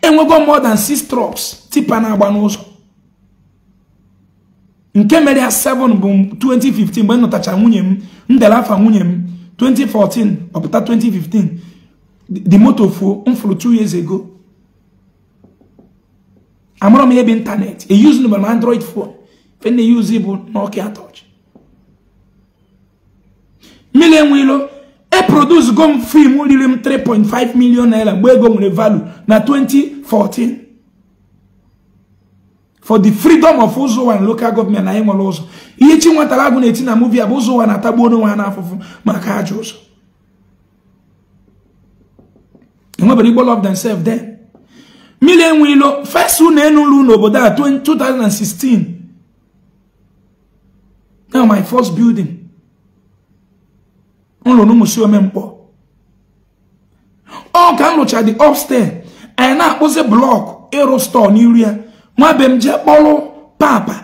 enwego more than 6 trucks tipa na-agba n'ụzọ nke mere ya 7 bụ 2015 mgbe m nwunye m m dere nwunye m 2014 ọpụta 2015 the moto fuo m fụrụ 2 years ago amụrụ m ebe ịntanetị eyuzu nụbara m android phone fe na use bụ Nokia touch mmiri enwe ilo e produce go m fim riri m 3.5 million naira mgbe ego nwere value na 2014 for the freedom of Uzowa and local government na ịnwere ụzọ ihe chi nwatara agụ na-eti na muvi a bụ Uzowa na-atagbu onwe ha n'afụfụ maka ajọ ụzọ enwebere Igbo love themselves there mmiri enwe ilo fes ụlọ enu ụlọ n'obodo a 2016 Now my first building No, ụlọ n'ụmụsi omemkpọ ọ ka m rụcha the upstairs anyị na-akpụzi blọk ịrụ stọọ n'iru nwa m jee kpọrụ papa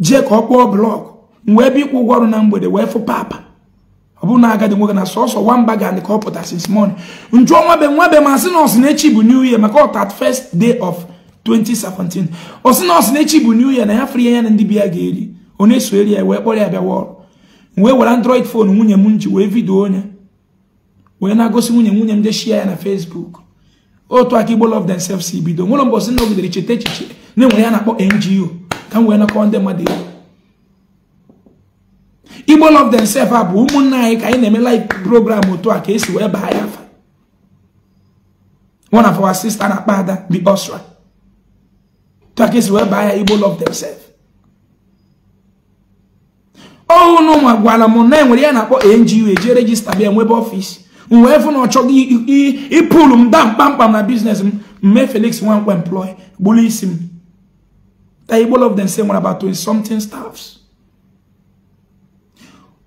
jee ka ọ kpọọ blọkụ wee bịa ịkwụ ụgwọ ọrụ na mgbede wee fụ papa ọ bụrụ na agadi nwoke na sọsọ nwamba ga ka ọ pụta since morning njuọ nwabe nwabe ma sị na ọsị bụ new year maka ọtat first day of 2017 ọsị na ọsị na echi bụ new year na ya fri ya na ndị bi ya ga-eri onye na-eso eri ya wee kpọrọ ya bịawa ọrụ wee were android fon nwunye m ji wee vidio onye wee na-agosi nwunye nwunye m jeshia ya na facebook otu aka igbo love themselves si bido nwere mbọsị na ogidere cheta echiche na-enwere ya na-akpọ ngo ka m wee nakọọ ndị mmadụ ego igbo love themselves a bụ ụmụnna anyị ka anyị na-eme live program otu a ka esi wee baa ya afa one of our sister na-akpa ada the osra otu a ka esi wee baa ya igbo love themselves ọhụụ na ụmụ agwala m na enwere ya na-akpọ ngo eji regista bịa nwebe ọfịs m wee fụ na ọ chọghị ịpụrụ m daa mkpamkpam na biznes m mmee Felix Nwankwo employ gburu isi m all of them say nwere about 20 something staffs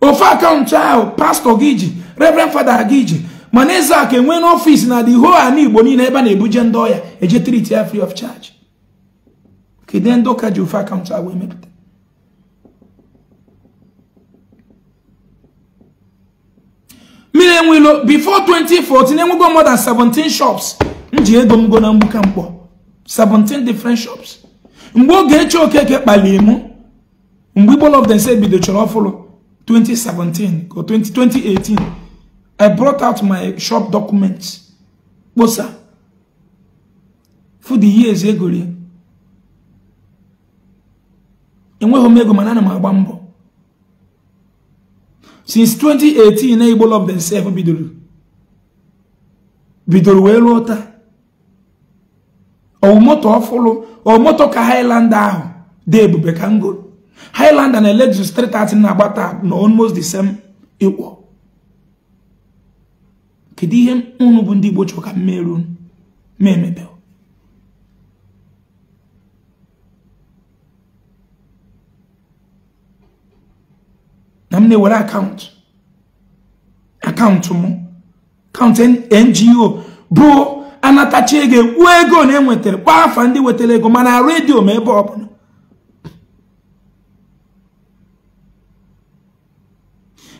ofe akaụntụ ahụ pastọ gị ji reverend fada gị ji mana eze aka enwe n'ọfịs na the whole ala igbo niile ebe a na-ebuje ndị ọya eje triti ya free of charge kedu ndị ụka ji ofe akaụntụ ahụ emepụta mmiri enwilo before 2014 enwego more than 17 shops m ji ego m go na mgbuka mkpọ 17 different shops mgbe oge eche okeke kpaliri m mgbe igbo of them say bido chọrọ ọfụlụ 2017 or 2018 i brought out my shop documents kposa for the years egori enweghị m ego mana ana m agba mbọ since 2018 na Igbo lọb themselves bidoro bidoro wee ruo taa ọmụmụtọ ọfụlụ ọmụmụtọ ka haịlanda ahụ dị ebube ka m gụrụ Highland na Lexus 330 na-agbata na almost the same ịkwọ kedu ihe unu bụ ndị Igbo chọrọ ka mmerụ na m na-ewere akaụntụ akaụntụ m akaụntụ ngo bụ anatacha ego ego na enwetara kwa afa ndị wetere ego mana redio ma ebe ọbụla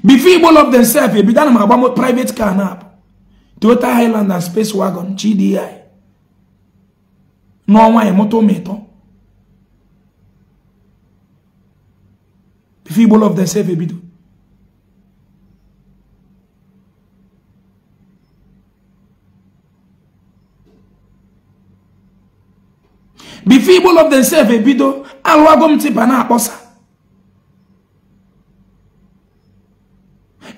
before Igbo love themselves ebido ana m agba private car na abụ Toyota Highland and Space Wagon GDI n'ọnwa emụta ụmụịtọ before ebido if Igbo of themselves ebido alụago m tipa na-akpọsa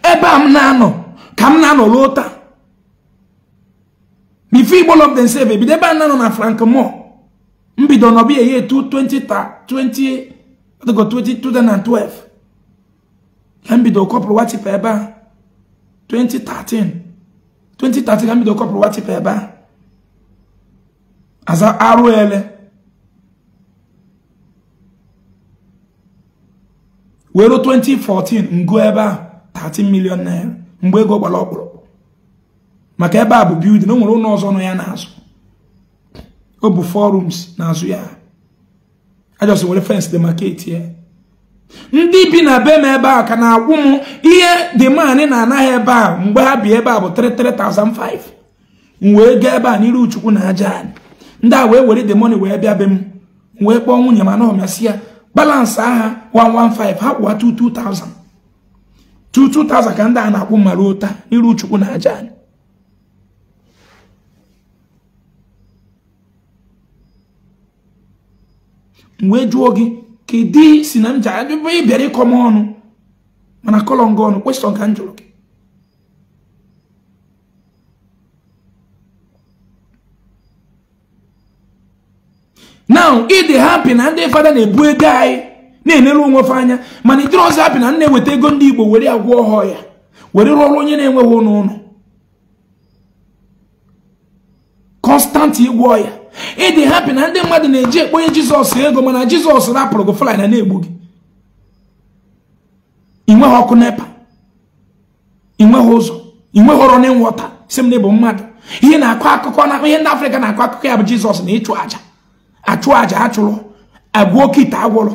ebe a m na-anọ ka m na-anọ ruo taa if Igbo love themselves ebido ebe a na-anọ na Frank Moore mbido nọbịa ya 2012 ka mbido kọpụrụ watipa ebe a 2013 2013 ka mbido kọpụrụ watipa ebe a aza arụ were 2014 ngo ebe ahụ 13 million naira mgbe ego gbara ọkpụrụkpụ maka ebe a bụ building o nwere ụlọ ọzọ nọ ya n'azụ ọ bụ four rooms n'azụ ya ajọsị were fence dị maketi ya ndị bi na be m ebe a ka na-akwụ m ihe dị maanị na-anaghị ebe a mgbe ha bi ebe a bụ 335 m wee gaa ebe a n'iru chukwu na aja anyị ndị a wee were the money wee bịa be m wee kpọọ nwunye m na masị ya balansị agha 115 ha kwụwa 22000 22000 ka ndị a na-akwụ mara ụta iru chukwu na aja anyị mgbe jụọ gị ka kedu si na m ji ịbịara ịkọ m ọnụ mana kọlọ nga ọnụ kwesịrọ ka m jụrụ gị now ịdị dị hapi na ndị fada na-ebu ego anyị na-enere onwe fa anya mana ịdịrị ọzọ hapi na na-eweta ego ndị igbo were agwọ ọhọ ya were rụọrụ onye na-enweghị ụlọ ụlọ kọnstanti ịgwọ ya ịdị dị hapi na ndị mmadụ na-eji ekponye jizọs ego mana jizọs rapụrụ gị na na-egbu gị ị nweghị ọkụ nepa ị nweghị ụzọ ị nweghị ọrụ na ịnwọta si m na ịbụ mmadụ ihe na-akọ akụkọ na ihe ndị afrịka na-akọ akụkọ ya bụ jizọs na ịchụ àjà achụ aja achụrụ agwụ oke agwụrụ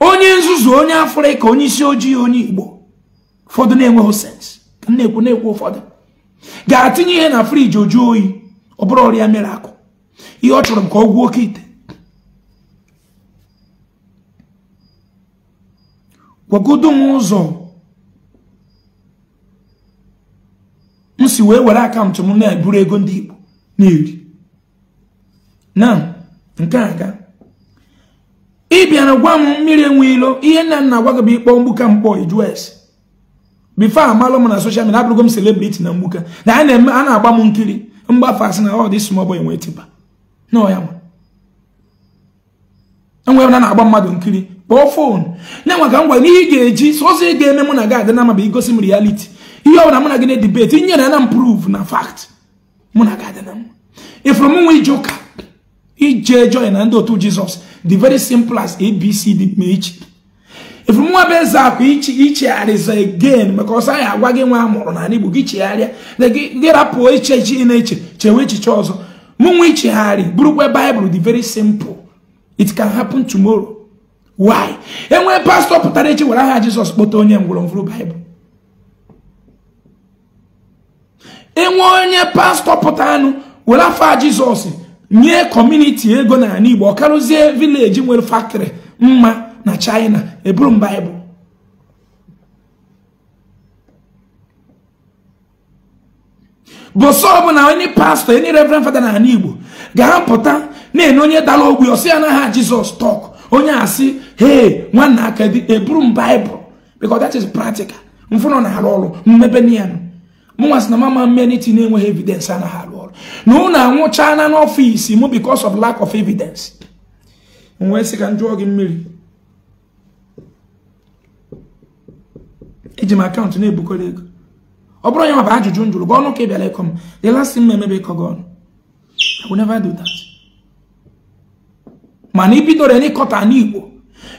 onye nzuzu onye afrịka onye isi ojii onye igbo ụfọdụ na-enweghị sens na na-ekwu ụfọdụ ga atinye ihe na friji oju oyi ọ bụrụ ọrịa mere akụ ihe ọ chọrọ ka ọ gwuo okite ite m ụzọ m si wee were akaụntụ m na-eburu ego ndị igbo na-eri na nke aga ị bịara gwa m mmiri enwe ihe nna nna gwa gị bụ ịkpọ mgbuka mkpọ iju es bifo amalụ m na soshal midia abụrụgo m selebriti na mgbuka na a na-eme a na-agba m nkiri mgbafe asị na ọ oh, dị small boy nwee tiba enwere na na-agba mmadụ nkiri kpọọ fon na-enwe ka m gwara ị ga-eji sọsọ ị ga-eme mụ na gị adị na ama bụ igosi m rialiti ihe ọbụla mụ na gị na-edibeti nyere na mprove na fakt mụ na gị adị na mma m nwa ije ụka ije joy na ndị otu jizọs the very simple as abc abcd ma echi efumunwa bụ eze ichi ichegharịza again because ọsọ anyị agwa gị nwa a mụrụ n'ala igbo gị chegharịa gị rapụ echiche na-eche chewe echiche ọzọ mụnwa buru bụrụkwa baịbụl the very simple it can happen tomorrow why enwe pastọ pụtara echi were aha jesus kpọta onye ngwurọngwụrụ baịbụl enwe onye pastọ pụta anụ were afa jizọs nye kọmuniti ego n'ala Igbo ọkarụzie vileji nwere faktịrị mma na China eburu m baịbụl bụsọ ọbụla onye pastọ enye reverend fada n'ala Igbo ga-apụta na-enye onye dara ogbi ọsị ya n'aha Jizọs tọk onye asị hee nwanna aka dị eburu m baịbụl because that is practical mfụnọ na-arụ ọrụ mmebe niyanụ mụnwa sị na mama na-enweghị evidence anaghị na unu anwụchaala n'ọfịs m because of lack of evidence nwee sị ka njụọ gị mmiri eji m akaụntụ na-ebukọrọ ego ọ bụrụ onye ma bụ ajụjụ m jụrụ gị ọnụ ka ị bịara ịkọ m the last thing m emebe ịkọ gị ọnụ I will never do that mana ibidoro n'ịkọta n'Igbo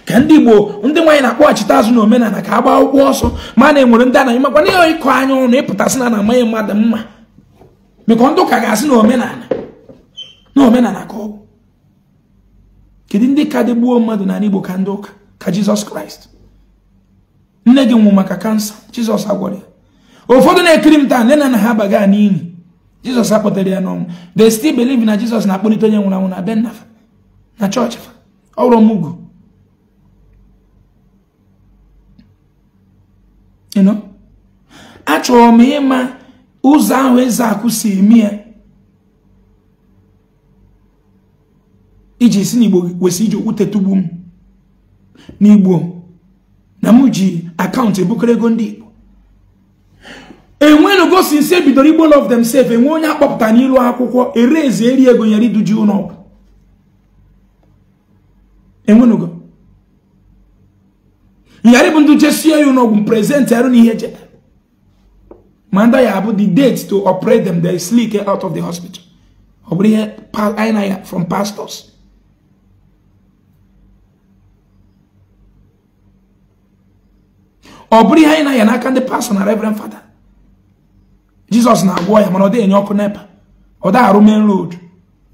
ka ndị Igbo ndị nwaanyị na-akpọghachite azụ na omenala ka a gbaa ụkwụ ọsọ ma na enwere ndị anaghị makwa na ịkọ anya ọnụ ịpụtasị na na amaghị mmadụ mma mekọ ndị ụka ga-asị na omenala na omenala ka ọ bụ kedu ndị ka dị gbuo mmadụ n'ala Igbo ka ndị ụka ka Jizọs Kraịst nne gị nwụ maka kansa Jizọs agwara ya ụfọdụ na-ekiri m taa nne na nna ha abaga n'ili Jizọs akpọtara ya n'ọnwụ they still believe na Jizọs na-akpọlite onye nwụrụ anwụ na be na chọọchị fa ọrụ m ugwu achọrọ m ịma ụzọ ahụ eze akụ si eme iji si n'igbo kwesị iji okwute tugbu m n'igbo na m ji akaụntụ ebukere ego ndị igbo enwenugo si nsi ebidoro igbo love themselves enwe onye akpọpụta n'ilu akwụkwọ ere eze eri ego nyere iduji ụlọ enwenugo nyarị bụ ndụ jesie ya ụlọọgwụ m prezent arụ n'ihe jeda manda ya abụ the date to operate them the sleek out of the hospital ọ bụrụ ihe anyị na ya from pastors ọ bụrụ ihe anyị na ya n'aka ndị pastor na reverend fada jizọs na-agwọ ya mana ọ dịghị enye ọkụ nepa ọ da arụ main ọ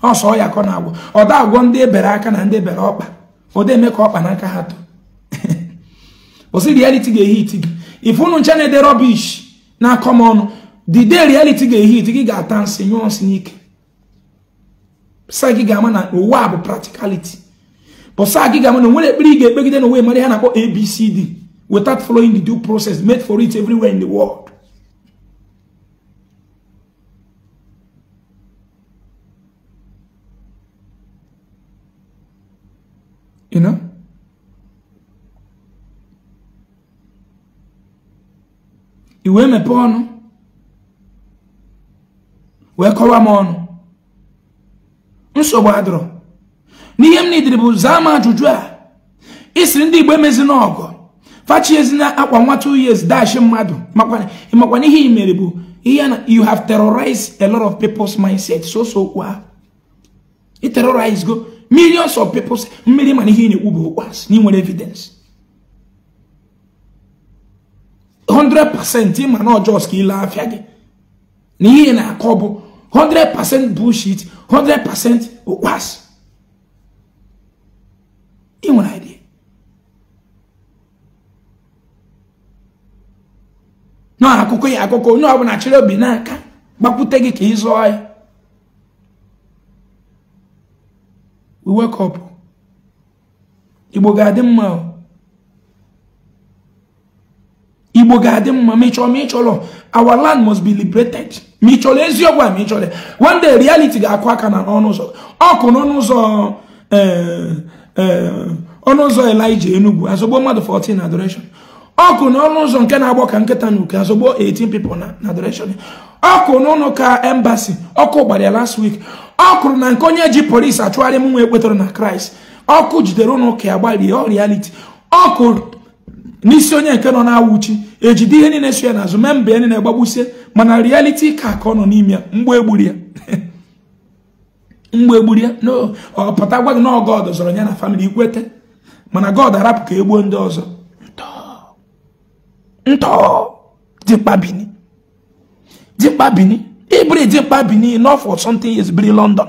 ọsọ ya ka ọ na-agwọ ọ da agwọ ndị ebere aka na ndị ebere ọkpa ọ da eme ka ọkpa n'aka ha too osi [LAUGHS] reality ga-ehi iti gị ifunụ ncha na-ede rubbish na-akọ m the day reality ga-ehi gị ga-ata nsị nyụọ nsị n'ike ga-ama na ụwa bụ practicality bụsa gị ga-ama na nwere ekpere ga-ekpegide na onwe mara ihe na-akpọ abcd without following the due process made for it everywhere in the world i wee ọnụ wee kọwa m ọnụ nsogbu adọrọ n'ihe m nidiri bụ zaa m ajụjụ a isiri ndị igbo emezina ọgọ fachiezina akwa nwa two years dashi mmadụ makwa ihe i mere bụ ihe na you have terrorized a lot of people's mindset so so kwa i terrorize go millions of people's mmiri ma ihe ị na-ekwu bụ ụkwas na nwere evidence 100% ma na ọjọọ ka ile afịa gi na ihe na akobu 100% bullshit 100% ụkpasị ị nwere idea nọ akụkọ ya onye ọbụla chịrị obi n'aka gbakwute gị ka ị zụọ ya we wake up igbo ga-adị mma igbo ga-adị mma ma ịchọrọ ma chọrọ our land must be liberated ma chọrọ eziokwu a ma ịchọrọ one day reality ga-akụ aka na n'ọnụ ụzọ ọkụ n'ọnụ ụzọ eh, eh, ọnụ ụzọ elija enugwu azọgbo mmadụ 14 na adoration ọkụ n'ọnụ ụzọ nke na-agbọ ka nkịta na uke azọgbo 18 people na adoration ọkụ n'ụlọ ka embassy ọkụ gbara ya last week ọkụrụ na nke onye ji polisi achụgharị m nwa ekwetara na kraịst ọkụ jidere ụnụ ka ya gbarie reality ọkụ n'isi onye nke nọ na-awụchi ejide ihe niile so ya n'azụ mee mbe ya niile gbagbusie mana rialiti ka ka ọ nọ n'ime ya mgbe egburu ya [LAUGHS] mgbe egburu ya no pụta gwa gị na God zọrọ ya na famili ikwete mana God arapụ ka e gbuo ndị ọzọ ntọ dịkpa bini dịkpa bini n'ọfọ something is biri London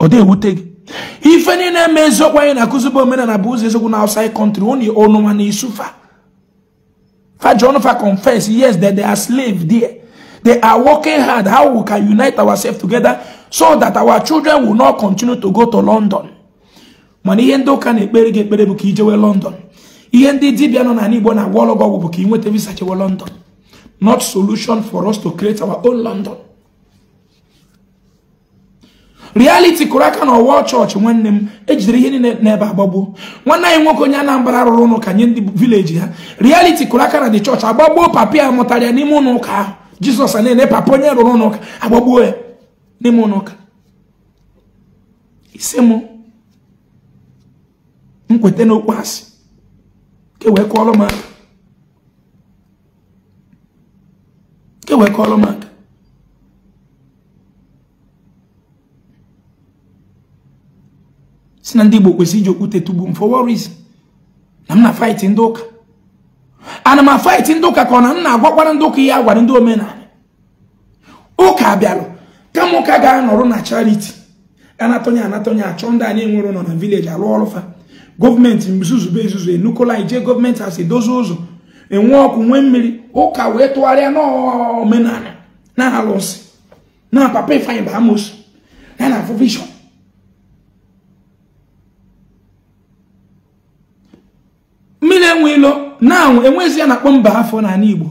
ọ dị ewute gị ife niile eme eziokwu anyị na-akụzibe and bụ ụzọ eziokwu na outside country onye ọnụ nwa na-esufa fa john fa confess yes that they are slave there they are working hard how we can unite ourselves together so that our children will not continue to go to london Money ihe ndị ụka na-ekpere gị ekpere gi ekpere to london ihe ndị dibịa nọ n'ala igbo na-agwa ọlọgwụ ọgwụ bụ ka ị nweta visa london not solution for us to create our own london realiti kụrụ aka n'ọwa chọọchị nwanne m ejidere ihe niile n'ebe agbagbo nwanne anyị nwoke onye Anambra rụrụ ụlọ ka nye ndị vileji ha realiti kụrụ aka na dị chọọchị agbagbuo papa ya mụtara ya n'ime ụlọ ụka ahụ jizọs na-ene papa onye rụrụ ụlọ ụka agbagbuo ya n'ime ụlọ ụka isi m nkweta n'okpu asị ka wee m aka si na ndị Igbo kwesịrị iji okwute m for what reason na m na fight ndị ụka ana m fight ndị ụka ka ọ na m na-agwakwara ndị ụka ihe a gwara ndị omenala ụka bịalụ kama ụka ga-anọrọ na charity anatọnye anatọnye achọ ndị anyị nwere nọ na vileji alụ ọrụ fa gọọmenti mzuzube izuzu enukola ije gọọmenti asị dozie ụzọ enwe ọkụ nwee mmiri ụka wee tụgharịa n'omenala na alụsị na papa e ifeanyị bụ amosu na na enwe naanwụ na ya na-akpọ mba afọ n'ala Igbo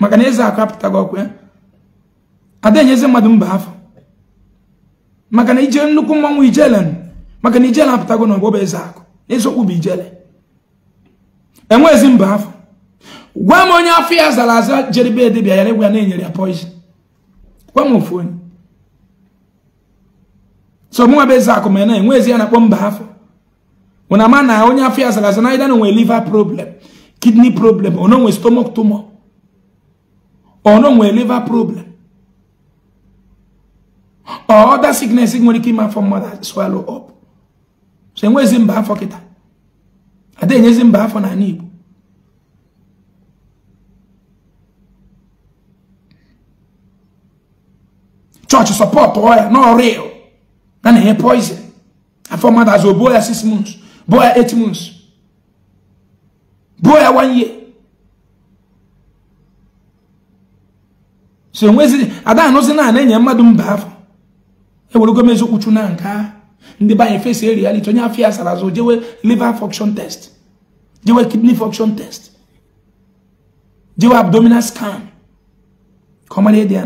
maka na eze akụ apụtaghị ọkụ ya ada enyezi mmadụ mba afọ maka na ije nnukwu mmanwụ ijele maka na ijele apụtago na ọgbọba eze akụ eziokwu bụ ijele enwezi mba afọ gwa m onye afọ ya zara aza jeribe edebia ya egwu ya na-enyere ya poizin gwa m ofu onye so mụnwa bụ eze akụ ma na enwezi ya na-akpọ mba afọ una man na onye afọ ya sara asa we either liver problem kidney problem ọ nonwe stomach tumor ọ nonwe liver problem or other sickness e nwere ike ime afọ mmadụ swallow up so enwezi mba afọ kịta ada enyezi mba afọ n'ala Igbo church support ọ ya no real na na-enye poison afọ mmadụ azụ obuo ya six months boy eight months boy one year so nwezi ada no se na na nya mmadụ mba afọ e were gome ezokwu na nka ndị ba anyị face reality onye afọ ya sara azụ jewe liver function test jewe kidney function test jewe abdominal scan Come on, here ịdị ya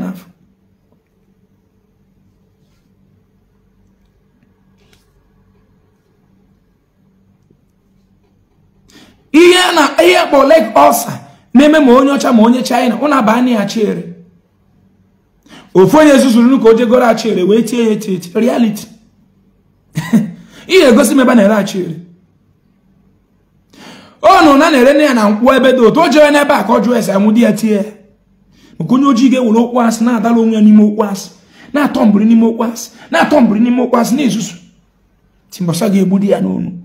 ihe na ihe kpọ leg ulcer na-eme ma onye ọcha ma onye china ọ na-aba anya ya chiere ofu onye zuzuru nnukwu o jegoro achiere wee tie ya eti eti reality [LAUGHS] ihe egosi m ebe na-ere achiere ọnụ na na-ere nne ya na nkwụ ebe dị otu o jere n'ebe a ka ọ jụọ ese anwụ di ya tie ya maka onye ojii ga-ewere okwu asị na-adala onwe ya n'ime okwu asị na-atọ mbiri n'ime okwu asị na-atọ mbiri n'ime okwu asị na-ezuzu timbọsa ga-egbu di ya n'onu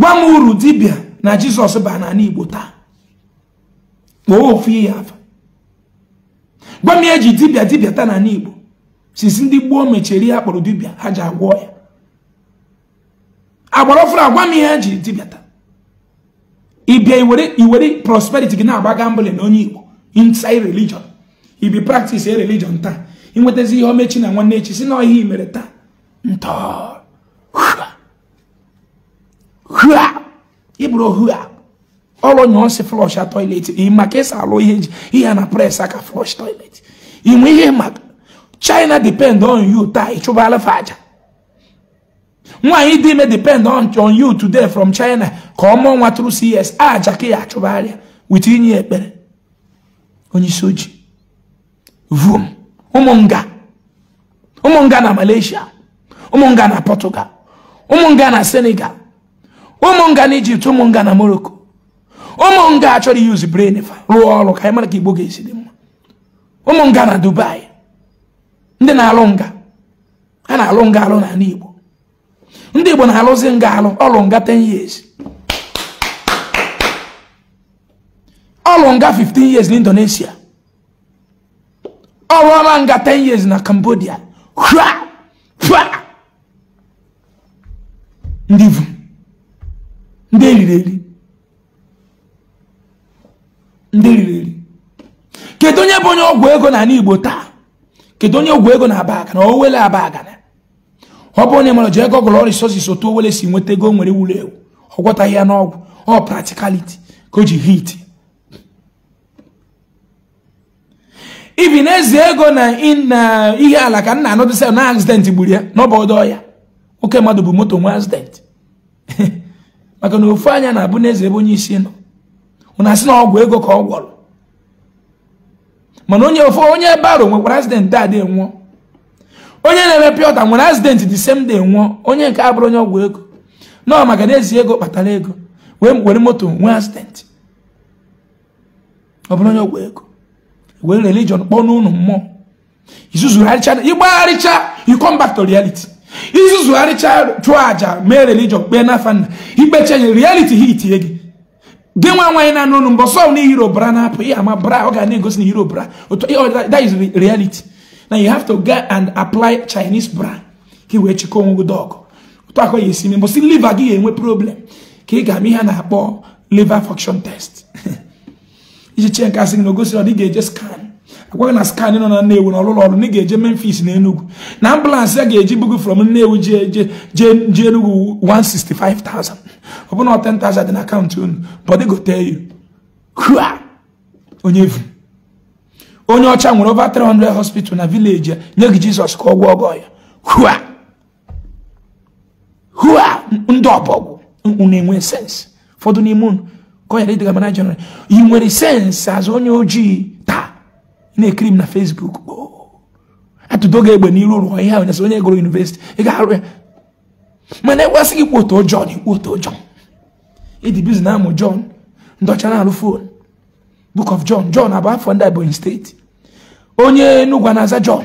gwa m uru dibịa na jizọs baa n'ala igbo taa kpọọ ofu ihe afa gwa m eji dibịa dibịa taa n'ala igbo sisi ndị gboo mechiri ya kpọrọ dibịa ha ji agwọ ya agbara ọfụrụ agwa m ihe eji dibịa taa ịbịa iwere prosperity gị na-agba gambling na onye igbo inside religion ibi practice e religion taa inwetazi ihe omechi na nwanne echi si na ihe imere taa ntọọ hua ibro hua All on ọsị flọsh toilet my case, esi alụ ihe ihe na pres aka flush toilet inwe ihe maka china depend on you chuba ịchụbala faja. aja nwaanyị dị me depend on on you today from china Come on, mụọ nwa tụrụ cs aja ka ya achụbagharịa wit inye ekpere onye isi ojii vum umonga ụmụnga na malaysia umonga na portugal umonga na senegal ụmụ nga na ijipt ụmụ nga na morocco ụmụ nga achọrọ yuzi brain rụọ ọrụ ka anyị mara ka igbo ga-esi dị mma ụmụ nga na dubai ndị na-alụ nga a na-alụ nga alụ n'ala igbo ndị igbo na-alụzi nga alụ ọlụ nga 10 years ọlụ nga 15 years na indonesia ọma nga 10 years na cambodia ndị vụ. ndị eriri eri ndị eriri eri kedu onye bụ onye ọgwụ ego na ala igbo taa kedu onye ọgwụ ego na aba agana o aba agana ọ bụ onye mara ji ego gụlọ resources otu owele si nweta ego nwere wuru ewu ọgwọtaghị ya n'ọgwụ ọ practicality ka o ji hit ibi na-ezi ego na ihe ala ka nna anọdụsa na accident gburu ya n'ọbọdọ ya oke mmadụ bụ moto nwe accident [LAUGHS] maka na ofu anya na-abụ n'eze ebe onye isi nọ ụna asị na ọgwụ ego ka ọ gwọrọ mana onye ofu onye baro nwekwara azidentị adị nwụọ onye na-eme pịọta nwere azidentị dị same nwụọ onye nke abụrụ onye ọgwụ ego nọọ maka na ezi ego kpatara ego wee were moto nwee azidentị ọ bụrụ onye ọgwụ ego were religion kpọọ n'ụlọ mmụọ izuzu ịgbagharịcha you come back to reality izuzugharịcha chụọ àjà mee religion kpee n'afa nna ikpecha nye reality ha itinye gị gị nwa nwaanyị na-anụ ọnụ mbọ sọ na hero bra na-apụ ama bra ọ ga na-egosi na hero bra that is reality na you have to go and apply chinese bra ka ị wee chekwa onwe gị dọgụ ụtọ akwa ya esi mee mbọsị liva gị ga-enwe problem ka ị ga-ama ihe a na-akpọ liver function test [LAUGHS] iji chee nke asị gị na ogosi ọ dị ga-eje scan akwaghị na skan nọ na nnewu na ọlụlọ ọrụ na ị ga-eje memphis na enugwu na ambụlansị a ga-eji bugu from nnewu jee enugwu 165,000 ọ bụna 10,000 dị na akaụntụ unu bọdị gote yu onye vu onye ọcha nwere over 300 hospital na vileji ya nye gị jizọs ka ọ gwọ ọgọ ya hua hua ndị ọbọgwụ unu enwe sens ụfọdụ n'ime unu ka ọ yara ịdịga mana jenral ị nwere sens azụ onye ojii na-ekiri m na Facebook oh, atụdo gị egbe n'iru ụlọ ihe ahụ nyasị onye gụrụ yunivesiti ị ga-arụ ya mana ekwesị gị kpoto John ikpoto John ịdị bizi na amụ John ndọcha na-alụ fon Book of John John abụ afọ ndị Ebonyi steeti onye Enugwu na-aza John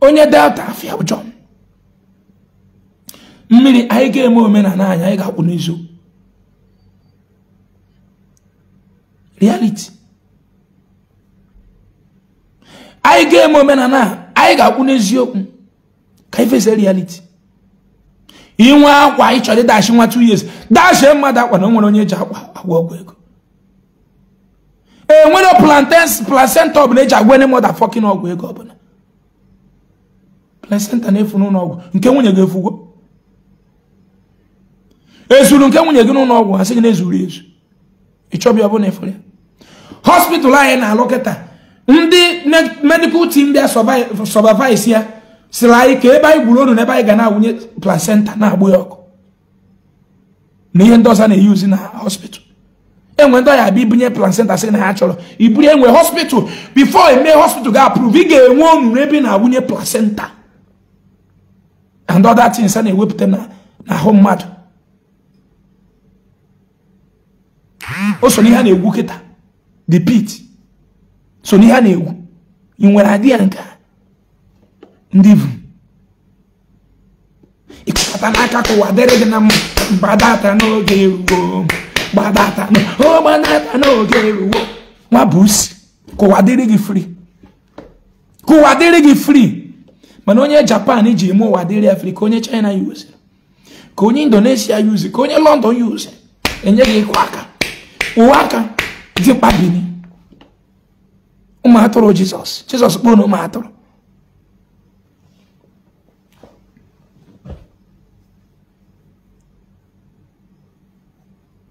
onye Delta Afia bụ John mmiri anyị ga-eme omenala anyị anyị ga-akwụ n'izu reality anyị ga-eme omenala anyị ga-akwụ n'eziokwu ka anyị fesa reality inwe akwa ị chọrọ ịdashi nwa 2 years dashie mmadụ akwa na nwere onye eji akwa agwa ọgwụ ego e nwere placenta ọbụla eji agwa ndị mọda fọkin ọgwụ ego ọbụla placenta na-efu n'ụlọ ọgwụ nke nwunye ga-efugo ezuru nke nwunye gị n'ụlọ ọgwụ sị gị na-ezuru ezu ịchọbịa ọbụla ya hospital anyị na-alụ kịta ndị medikal tim bịa sọbavais ya sịrị anyị ka ebe anyị gburu onu na ebe anyị ga na-awụnye placenta na-agbụ ya ọkụ na ihe ndị ọzọ na-eyuzi na hospital enwe ndị ọya abịa ibunye placenta sị na ha chọrọ iburu enwe hospital before eme hospital ga-approve ị ga-enwe onuru ebi na-awụnye placenta and other things a na-ewepụta n'ahụ mmadụ o so ihe a na-egwu kịta the pit so n'ihe a na egwu ị nwere adị ya nke ndị bụ ịkpata n'aka ka ụwa dịrị gị na mma gbadata n'oge eruo gbadata gbadata n'oge eruo nwa bụ usi ka dịrị gị free ka dịrị gị free mana onye japan ji eme ụwa dịrị ya free ka onye china yuzi ka onye indonesia yuzi ka onye london yuzi enye gị ịkwa aka ụwa aka dị mkpa bini ụmụ atụrụ jizọs jizọs kpọọ na ụmụ atụrụ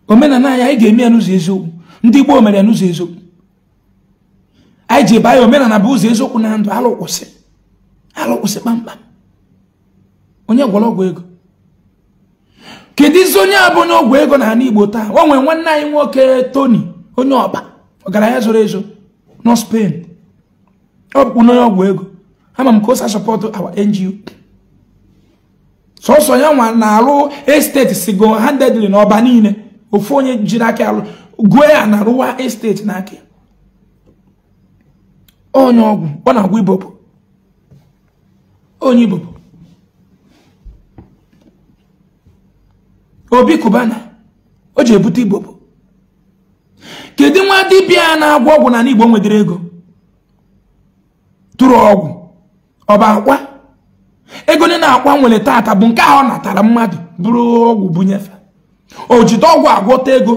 omenala anyị anyị ga-eme ya n'ụzọ eziokwu ndị gboo mere ya n'ụzọ eziokwu anyị ji ebe ya omenala bụ ụzọ eziokwu na ndụ alụkwụsị alụkwụsị kpamkpam onye gwọrọ ọgwụ ego kedu izi onye a bụ onye ọgwụ ego na ala igbo taa o nwere nwanne anyị nwoke toni onye ọba ọgaranya zoro ezo nọ Spain ọ bụ onye ọgwụ ego ama m ka o sa support our NGO sọsọ ya nwa na-arụ esteti sigo handedly n'ọba niile ofu onye jiri aka arụ gwe ya na arụwa esteti n'aka onye ọgwụ ọ na-agwụ ibopụ onye ibopụ obi kubana o ji ebute kedu nwa dibịa na-agwọ ọgwụ na n'igbo nwedịrị ego tụrụ ọgwụ ọ bụ akwa ego ne na-akwa nwere taata bụ nke ahụ ọ natara mmadụ bụrụ ọgwụ bunyefe o jide ọgwụ agwọta ego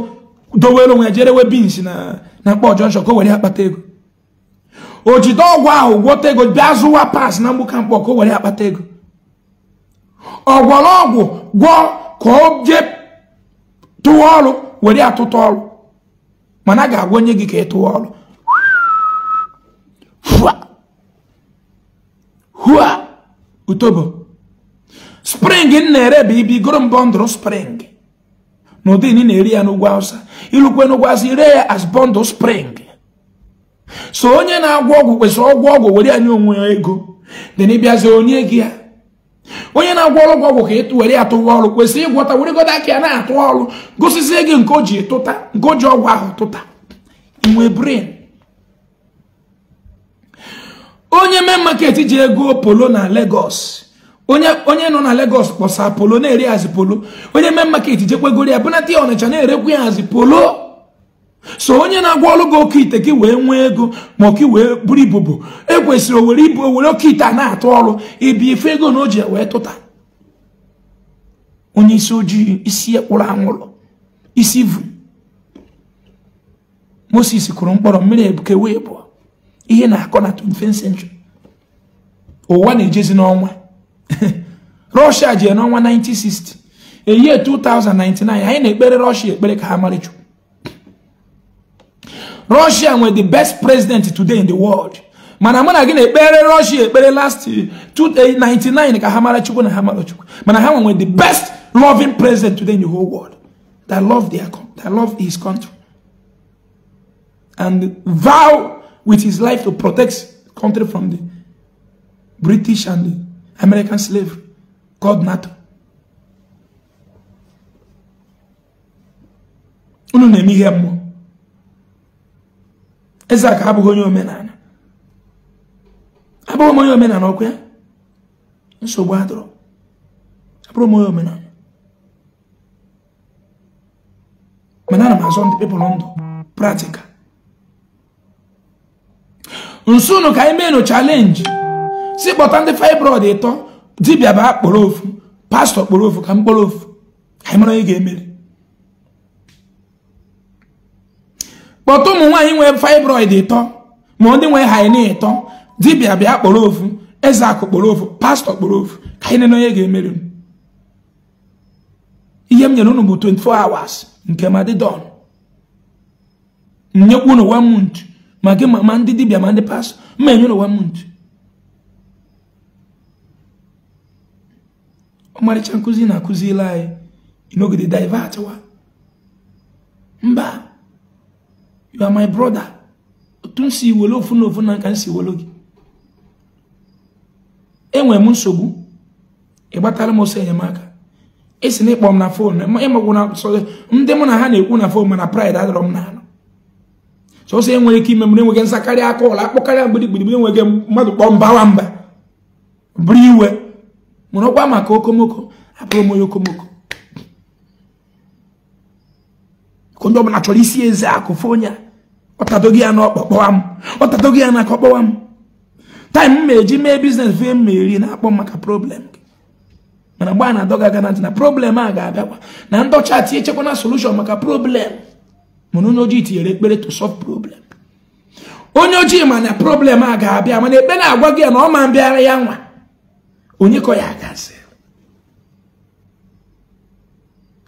dowere onwe ya jerewe bins na na mkpọ jọnshọn ka o were akpata ego o jide ọgwụ ahụ gwọta ego bịa zụwa pas na mgbuka mkpọ ka o were akpata ego ọ ọgwụ gwọ ka o jee tụwa ọrụ were atụta ọrụ mana a ga-agwa onye gị ka ị tụwa ọrụ hua utobo spring na-ere bụ ibi goro m spring n'ụdị ị na-eri ya n'ugwu awụsa ilukwe n'ugwu awụsa ire ya as bọndụl spring so onye na-agwọ ọgwụ kwesịrị ọgwụ ọgwụ were ya onwe ya ego dị na ịbịazi onye gị ya onye na-agwọ ọrụ ọgwụ ka ịtụ were ya tụwa ọrụ kwesịrị ịgwọta weregodo aka ya na-atụ ọrụ gosizie gị nke o ji tụta nke o ji ọgwụ ahụ tụta inwe brin onye mee maket ji ego polo na legos onye nọ na legos kpọsa polo na-eri hazi polo onye mee maket jekwegoro ya bụnata ya ọnịcha na-erekwu ya hazi polo so onye na-agwa ọrụ gị oke ite gị wee nwee ego ma ọka wee buru ibubu ekwesịrị owere ibu owere oke ite a na-atụ ọrụ ibi ife ego na o ji wee tụta onye isi ojii isi ekpụrụ anwụrụ isi vu Moses kụrụ mkpọrọ mmiri ebuke wee ihe na-akọ na 25th century ụwa na-ejezi n'ọnwa [LAUGHS] Russia ji n'ọnwa 1960 eyie 2099 anyị na-ekpere Russia ekpere ka ha marịchụ russia were the best president today in the world mana mụ na gị na-ekpere russia ekpere last eh, 99 ka ha mara chukwu na ha mara chukwu mana ha nwere the best loving president today in the whole world that love their that love his country and vow with his life to protect country from the british and the american slavery called nato unu na-eme ihe Isaac abụghị onye omenala abụghị onye omenala ọkwa nsogbu adọrọ abụrụ onye omenala mana ana m azọ ndị pepụl ndụ praktikal nsụnụ ka anyị mee nụ chalenji si kpọta ndị fibroid ịtọ dibia bụ akpọrọ ofu pastọ kpọrọ ofu ka m kpọrọ ofu anyị mara onye ga emere kpọta ụmụ nwaanyị nwee fibroid ịtọ ma ndị nwee haine ịtọ dibịa bịa kpọrọ ofu eze akụ kpọrọ ofu pastọ kpọrọ ofu ka anyị nenonye ga-emeri m ihe m nyere unu bụ 24 hours nke madidon nyekwa unu one month ma gị ma ndị dibịa ma ndị pastọ mma enye unu one month ọmarịcha nkụzi na akụziri anyị inogide divatiwa mba you are my brother otu m si ofu na ofu na nka m si were e enwere m nsogbu ịgbatara m ọsọ enyemaka esi na ịkpọ m na fon ịmagwụna sọ ndị na ha na-ekwu na fon mana pride adọrọ m n'ala sọsọ enwere ike ime m enweghị nsakarị aka ụlọ akpọkarịa mgbirigbidigbiri enweghị mmadụ kpọọ mbawa mba buru iwe mụrụ ọkwa maka okomoko abụrụ m onye okomoko onye ọbụla chọrọ isi eze akụ fọ ọtadoghị ya n'ọkpọkpọwa m ọtadoghị ya n'aka ọkpọwa m taịm m eji mee biznes vee m eri na-akpọ maka problem mana gbaa na aga na ntị na problem a ga-abịakwa na ndọcha tinye chekwa na solushon maka problem mana onye ojii tinyere ekpere to solve problem onye ojii ma na problem a ga-abịa mana ekpe na-agwa gị ya na ọ ma mbịara ya nwa onye kọ ya agazi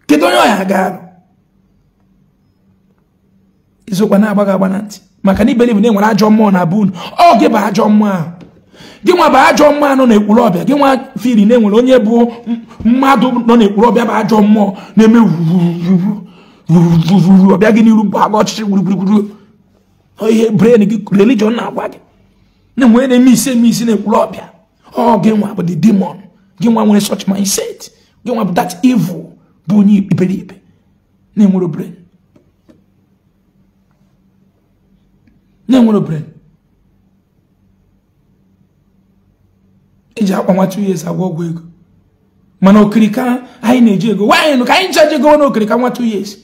kedu onye ọ ya arụ izokwa na-agba agba na ntị maka na iberibe na enwere ajọ mmụọ na bụ unu ọ gị bụ ajọ mmụọ ahụ gị nwa bụ ajọ mmụọ nọ n'ekpuru ọbịa gị nwa firi na enwere onye bụ mmadụ nọ n'ekpuru ọbịa bụ ajọ mmụọ na-eme wuruuru ọbịa gị n'iru bụ agba ọchịchị gburugburu ihe bren gị religion na-agwa gị na-enwe na-eme isi eme isi n'ekpuru ọbịa ọ gị nwa bụ the demon gị nwa nwere such mindset gị nwa bụ that evil bụ onye iberibe na-enwere bren na-enwere brain iji akwa ihe esi ọgwụ ego mana okirika anyị na-eji ego nwaanyị nụ ka anyị nchaji ego na okirika nwa two years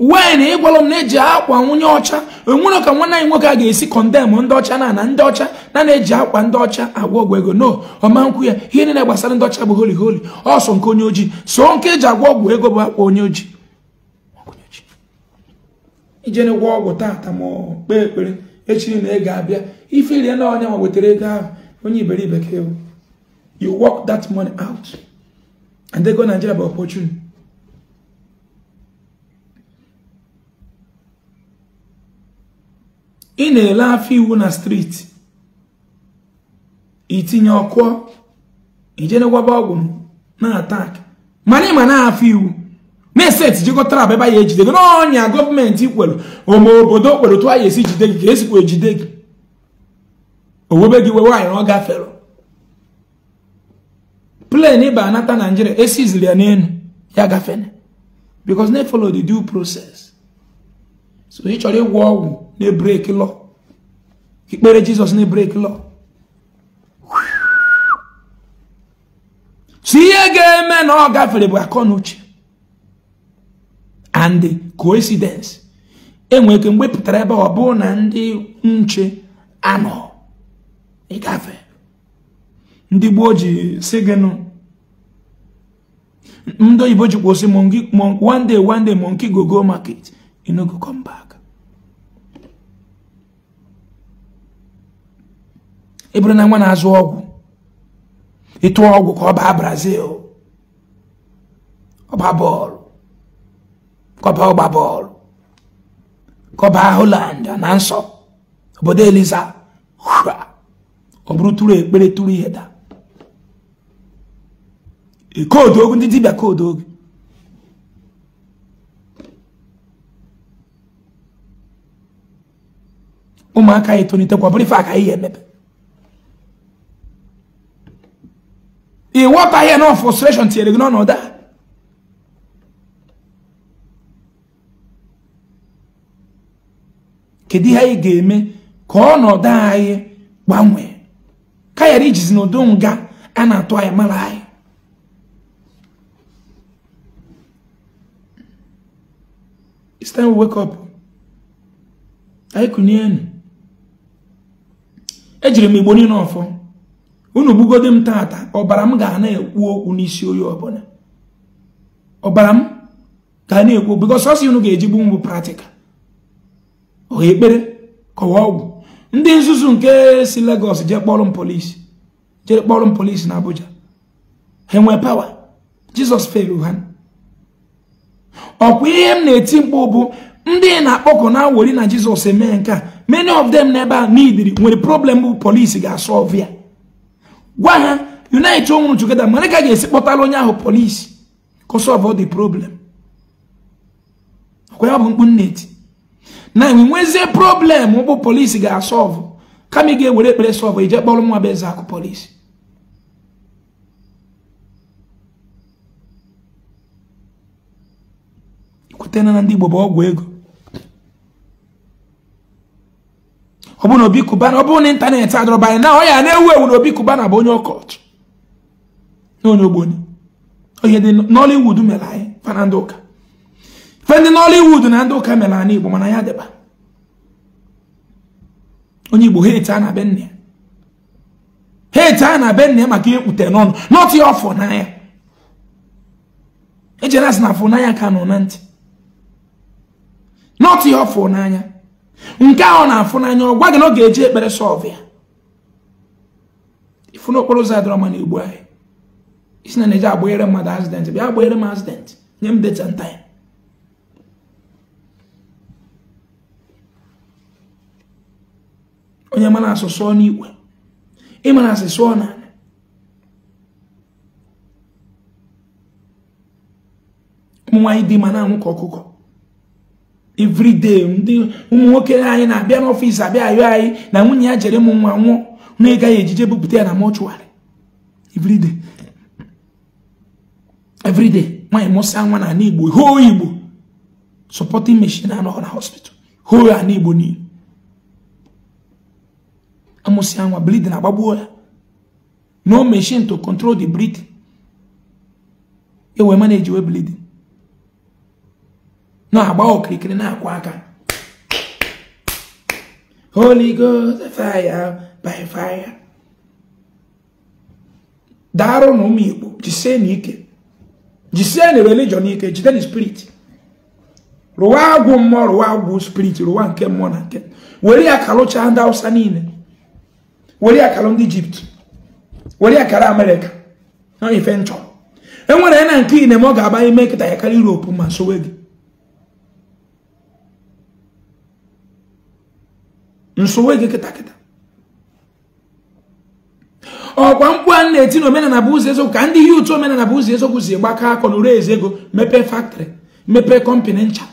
nwaanyị na ịgwala m na-eji akwa nwunye ọcha enwere ka nwanne anyị nwoke a ga-esi kọndem ndị ọcha na na ndị ọcha na na-eji akwa ndị ọcha agwa ọgwụ ego no ọma nkwu ya ihe niile gbasara ndị ọcha bụ holi holi ọsọ nke onye ojii so nke eji agwa ọgwụ ego bụ akwa onye ojii ijene gwọ ọgwụ tata ma kpee ekpere echi na ị ga-abịa ife rie na onye ma wetara ego ahụ onye iberibe ka ewu you work that money out and they go Nigeria by opportunity ị na-ele afọ iwu na streeti itinye ọkụ ijenegwaba ọgwụ na atak mana ịma na afọ iwu ndị steeti jikọtara aba ebe nya ejide gị n'ọnya gọọmenti kwelu ome obodo kwelu tụ anyị esi jide gị ka esikwa ejide gị owebe gị wee nwaanyị na ọ gafere plen ịba anata naijiria esiziri ya n'elu ya gafere because they follow the due process so ị chọrọ ịgwọ ọgwụ na-ebreki lọ ikpere jizọs na-ebreki lọ so ihe ga-eme na ọ gafere bụ akọ na na coincidência coincidence enwere ike mgbe pụtara ebe ọ bụrụ na ano nche anọ ịgafe ndị gboo ji si gị nụ ndị oyibo one day one day monkey go go market you no go come back e bụrụ na nwa na-azụ e ịtụọ ọgwụ ka ọ Brazil ọ baa kọba ọgba bọọlụ kọba Holland na nsọ obodo eliza ọ bụrụ tụrụ ekpere tụrụ ihe daa e, koodu ogu ndị dibịa koodu ogu ụmụaka anyị tolitekwa bụrụ ife aka ihe emepe ị ghọtaghị na frustration tinyere gị n'ọnọdụ a kedu ihe anyị ga-eme ka ọnọdụ anyị gbanwee ka ghara ijizi n'udo nga a na-atụ anyị mara anyị it's ejiri m igbo niile ọfọ unu gbugode m tata ọbara m ga na-ekwu okwu n'isi oyi ọbụla ọbara m ga na-ekwu because ọsị unu ga-eji gbu m bụ ọha ekpere kọwa ọgwụ ndị nzuzu nke si Lagos jee kpọrọ m polisi jere kpọrọ m polisi na Abuja ha enwee pawa Jizọs felu ha ọkwa ihe m na-eti mkpu bụ ndị na-akpọkọ na wori na Jizọs eme nke a many of them n'ebe a n'idiri nwere problem bụ polisi ga-asọlvụ ya gwa ha unite onwuru together mara ka ga-esi kpọtara onye ahụ polisi ka ọ solve problem ọkwa ya bụ mkpu nna eti na nwezie problem bụ polisi ga-asọvụ kama ị ga-ewere ekpere sọvụ ije kpọrọ nwa bụ eze akụ polisi ikwetena na ndị Igbo bụ ọgwụ ego ọ bụ na Obi Cubana ọ bụ na ịntanetị adọrọba anyị na ọ ya na-ewu ewu na Obi kubana bụ onye ọkọchị na onye onye dị Nollywood mere anyị fana ndị ụka fe ndị na ndị ụka mere ana igbo mana ya dịba onye igbo hate a na be nne hate a na be nne maka ekpute n'ọnụ not ya ọfọ e n'anya ejere asị na afọ n'anya ka nọ na ntị not ya ọfọ n'anya nke ahụ na-afụ n'anya ọ gwa gị na ọ ga-eji ekpere sọlv ya ifu n'okporo ụzọ adịrọ ma na igbo anyị isi na na-eji agbahere mmadụ azident bịa agbahere m azident nye m deta nta ya onye mana asụsụ n'igwe ịma na na ụmụ nwaanyị dị ma anwụ ka ọkụkọ everyday ndị ụmụ nwoke anyị na-abịa n'ọfịs abịa ayọ anyị na nwunye ya jere ụmụ nwa nwụọ na ya ejije bupụta ya na mọchụarị everyday everyday nwaanyị mụsa nwa na ala Igbo hoo Igbo supporting meshin anọghọ na hospital hoo ala Igbo niile amụsị anwa bleeding agbagbuo ya no machine to control the bleeding ewe manage we bleeding na-agba okirikiri na-akwa aka holy ghost fire by fire daarụ na ụmụ igbo jise na ike jisie religion ike jide na spirit rụwa agwụ mmụọ rụwa agwụ spirit rụwa nke mmụọ na nke were ya kalụchaa ndị hausa niile were akara ndị ijipt were akara amerika na ife nchọ enwere ya na nke ine ma ọ ga-aba ime kịta ya karịa europe ma sowe gị nsowe gị kịtakịta kịta ọkwa mkpu a na-eti na omenala bụ ụzọ eziokwu ka ndị ihe ụtụ omenala bụ ụzọ eziokwu si gbakọ akọ n'ụrụ ezi ego mepee faktọrị mepee kọmpanị ncha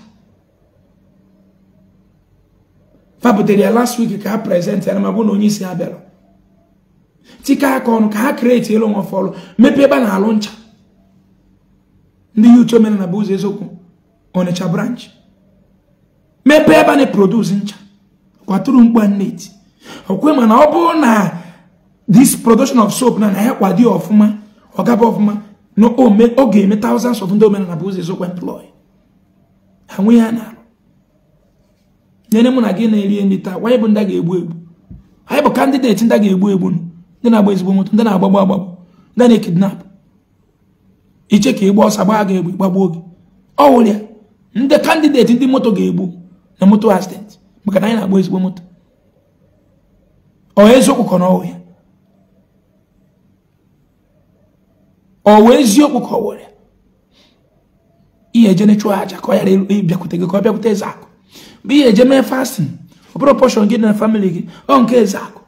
fa ya last week ka ha prezentị ya na ma na onye isi ha bịara tike aka ọnụ ka ha kreti elu nwa fọlụ mepee ebe a na-alụ ncha ndị yutu omenala bụ ụzọ eziokwu ọnịcha branch mepee ebe a na-eproduce ncha kwaturu mkpa neti okwe mana ọ bụrụ na this production of soap na na ya kwado ọfụma ọgaba ọfụma na ọ ga-eme thousands of ndị omenala bụ ụzọ eziokwu employ ha nwe ya na-alụ nyere mụ na gị na-eri nri taa wanye bụ ndị a ga-egbu egbu anyị bụ kandideti ndị a ga-egbu egbu nụ ndị na-agba ezigbo moto ndị na-agbagbu agbagbu ndị na-ekidnap iche ka ịgba ọsọ gbaa ga-egbu gbagbuo gị ọ wụrụ ndị kandideti ndị moto ga-egbu na moto accident maka na anyị na-agba ezigbo moto ọ eziokwu ka n'ọwụ ya ọ wụ eziokwu ka ọ were ihe eje na-echụ aja ka ọ ghara ịbịakwute gị ka ọ bịakwute eze akụ bụ ihe eje mee fastin ọ bụrụ pọshọn gị na famili gị ọ nke eze akụ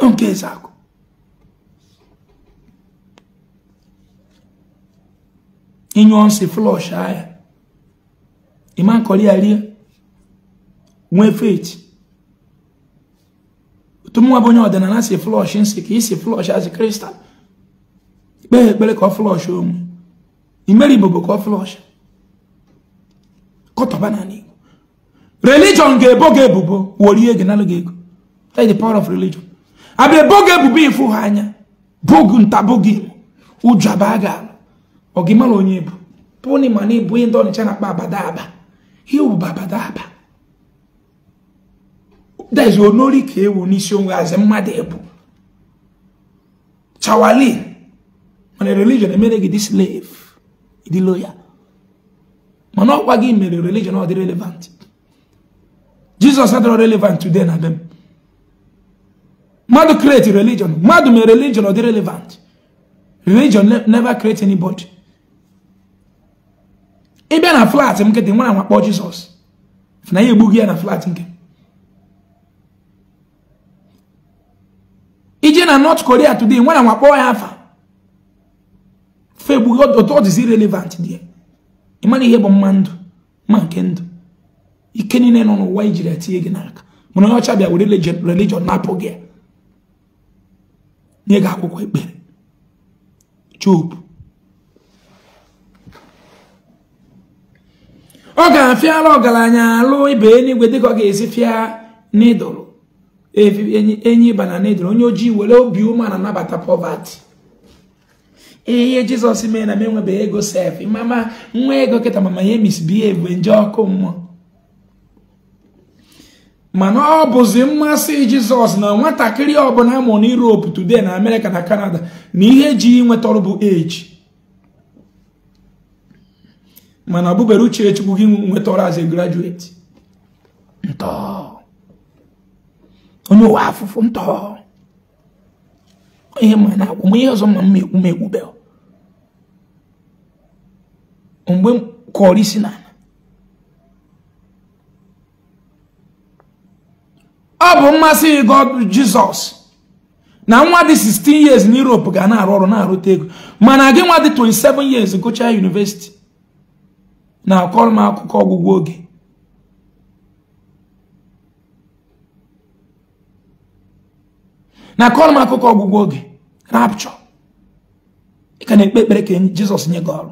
Yung kesa ako. Inyo si flush haya. Iman koli alia. Mwe fit. Tumu wabo nyo dena na si flush insi ki si flush as crystal. Be bele ko flush um. Imeri bobo ko flush. Koto banani. Religion ge bo ge bubo. Woriye genalo ge. That is the power of religion. abịa ebe ebubo ịfụ ha anya bogu ntabogi ụjọ abaa ga ọgịmara onye bụ pụni ma na ebu onye ndị ọnịcha na-akpa aba. ihe bụ abadaba dezi onori ka ewu n'isi onwe azị mmadụ ebu chawali mana religion emere gị dị slave dị mana ọkwa gị mere religion ọ dị relevant jizọs adịrọ relevant today na dem mmadụ create religion mmadụ mee religion ọ dị relevant religion never create anybody ị bịa na flat nkịtị nwa anwa kpọọ jizọs na ya egbughị ya na flat nke ije na north korea today nwa anwa ya afa fe otu ọ dịzi relevant dị ịmana ihe bụ mma ndụ ma nke ndụ ike niile nọ n'ụwa ijiri etinye gị n'aka mana onye ọcha bịa were religion na-apụ gị ya nye akwụkwọ ekpere Job ọ ga-afịara ọgaranya alụ ibe eluigwe dịka ọ ga-esi fịa n'ịdụrụ enyi ịba na n'ịdụrụ onye ojii were obi na nabata pọvati ihe jizọs mee na m enwebeghị ego sef mama nwa ego kịta mama ya emisibie egbe nje ọkụ mmụọ mana ọ bụzi mmasị jizọs na nwatakịrị ọbụla amụrụ na europe today na amerịka na kanada na ihe ji inweta ọrụ bụ eji mana ọ bụbere uche chukwu gị nweta ọrụ as a graduate ntọ onye ụwa afụfụ ntọ ihe ma na akwụ ihe ọzọ ma m ekwu m ekwubeghị mgbe kọrọ isi na ọ bụ mmasị god jizọs na nwa dị 16 years na europe ga na-arụ ọrụ na-arụta ego mana gị nwa dị 27 years gụchaa university na-akọrọ m akụkọ ọgwụgwọ oge na-akọrọ akụkọ ọgwụgwọ oge rapchọ ị ka na-ekpe ekpere ka jizọs nye gị ọrụ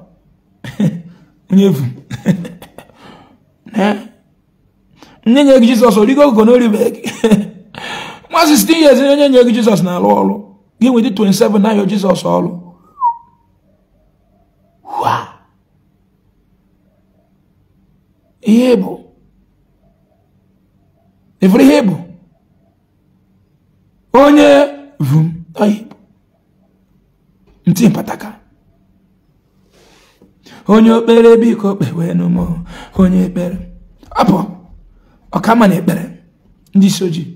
[LAUGHS] onye [LAUGHS] nye nye gị jizọs origo ogo na oribeghị nwa 16 years onye nye gị jesus na-alụ ọrụ gị nwedị 27 na-ayọ jesus ọrụ ihe bụ efere ihe bụ onye vum ọhịbụ ntị mpataka onye okpere biko kpewe n'ụmụ onye ekpere apụ ọkama na ekpere ndị isi ojii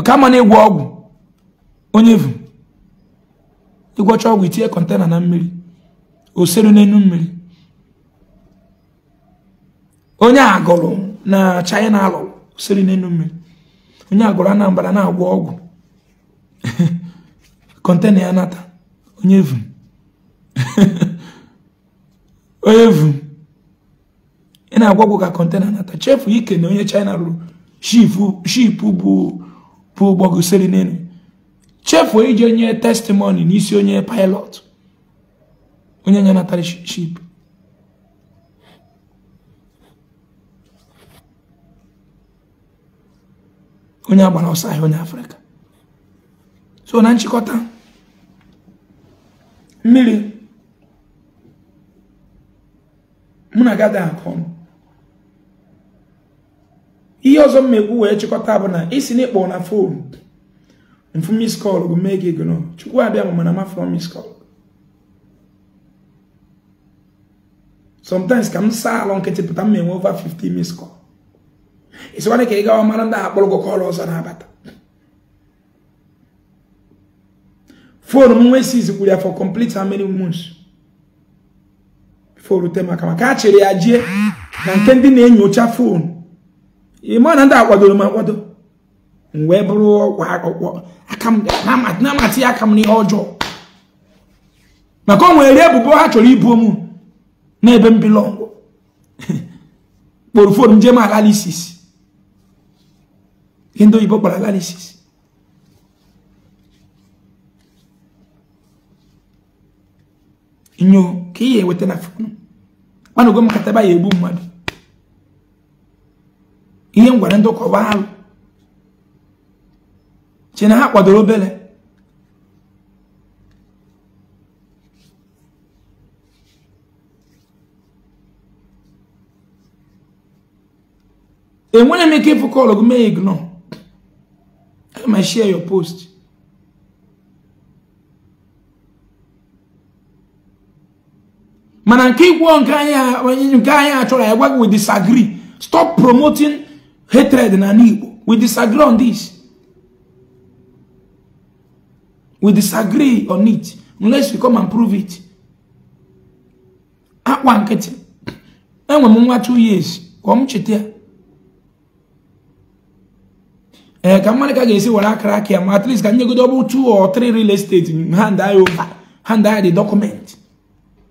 ọkama na ịgwọ ọgwụ onye vu ịgwọcha ọgwụ itinye kọntena na mmiri oseru n'enu mmiri onye agụrụ na china alụ oseru n'enu mmiri onye agụrụ anambra na-agwọ ọgwụ kọntena [LAUGHS] ya nata onye vu [LAUGHS] onye vu ị na-agwagwo ka kọntena nata chefu ike na onye china rụrụ shipu bụ ụgbọgosiri n'elu chefuo iji onye testimoni n'isi onye pilot onye nye natara ship onye agbara ọsọ ahịa onye afrịka so na nchịkọta mmiri mụ na gada akụ ihe ọzọ mmegbu wee chịkọta bụ na isi na ịkpọ na fon mfu miskọl bụ mee gị gụnụ chukwu abịa mana mafụrọ miskọl sometimes ka m saa alọ nkịtị pụta m enwe over 50 miskọl isikwana ka ị gawa mara ndị akpọrọ gị kọl ọzọ na-abata fonu m nwee siz kwuru ya for complete how many months before rute maka maka a chere ya jie na nke ndị na-enyocha foonu. ịma na ndị akwadoro m akwado m wee bụrụ ọkwa akpụkpọ na-amatị ya aka m n'ihe ọjọọ maka o nwere ebubo ha chọrọ ibu m n'ebe m bilọngụ [LAUGHS] kpọrọ fon njem alalisis ndị oyibo kpọrọ alalisis nyo ka ị ya eweta na fon mmanụ gwa m kataba ya egbu mmadụ ihe ngwara ndị ụkọba alụ che na ha kwadoro obere enwere m ike ịfụ kọlụ gị mee ignọ aga share your post mana nke ịgwọ nke anyị achọrọ anyị gwa gị we disagree stop promoting hatred na Igbo. We disagree on this. We disagree on it unless you come and prove it. At ah, one nkịtị. Enwe m nwa two years Come ọ Eh, come on, Ee ka mmadụ ka ga-esi were akara aka at least can you go double two or three real estate hand eye over hand eye the document.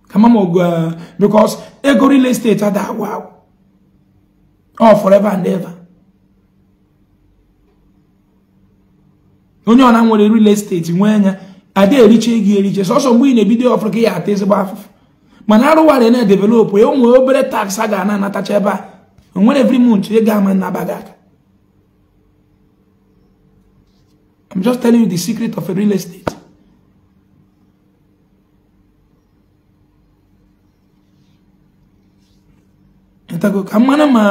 Come on, eh, because ego real estate ada agwụ agwụ. All forever and ever. onye ọna nwere real estate nwee anya adị eriche gị eriche sọsọ mgbe ị na-ebido ọfụrụ ka ya ata ezigbo afụfụ mana arụwara na developụ ya e onwe obere tax a ga-ana anatacha ebe a onwere every month ị ga-ama nnaba gị aka I'm just telling you the secret of a real estate. ka mmanụ ma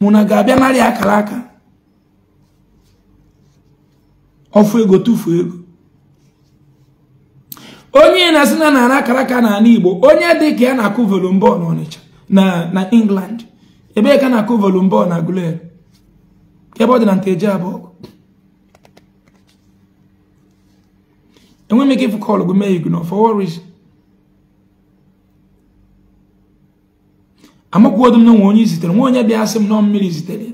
mụ na ga-abịa narị akara aka ọfụ ego tụfuo ego onye na-asị na nara akara aka n'ala igbo onye dị ka ya na-akụ volumbọl n'Ọnịcha na England ebee ka na-akụ volumbọl na Gụlere ebe ọ dị na nteji abụọ enweghị m ike ịfụ kọlụ gụ mee igu na ọfọwọriz amakwuodu m na nwe onye zitere nwa onye bịa asị m nọ mmiri zitere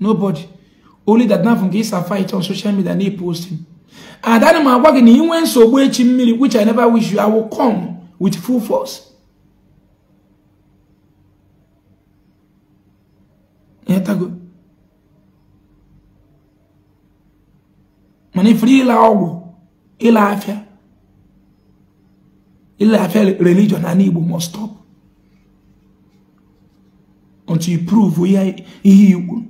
n'ụbọchị only that now from Gisa fight on social media na posting. And that my work in when so mmiri which I never wish you I will come with full force. Yeah, that Yetago. Mani free la ọgwụ ịla afịa ịla afịa religion and Igbo must stop until you prove ihe ihe Igbo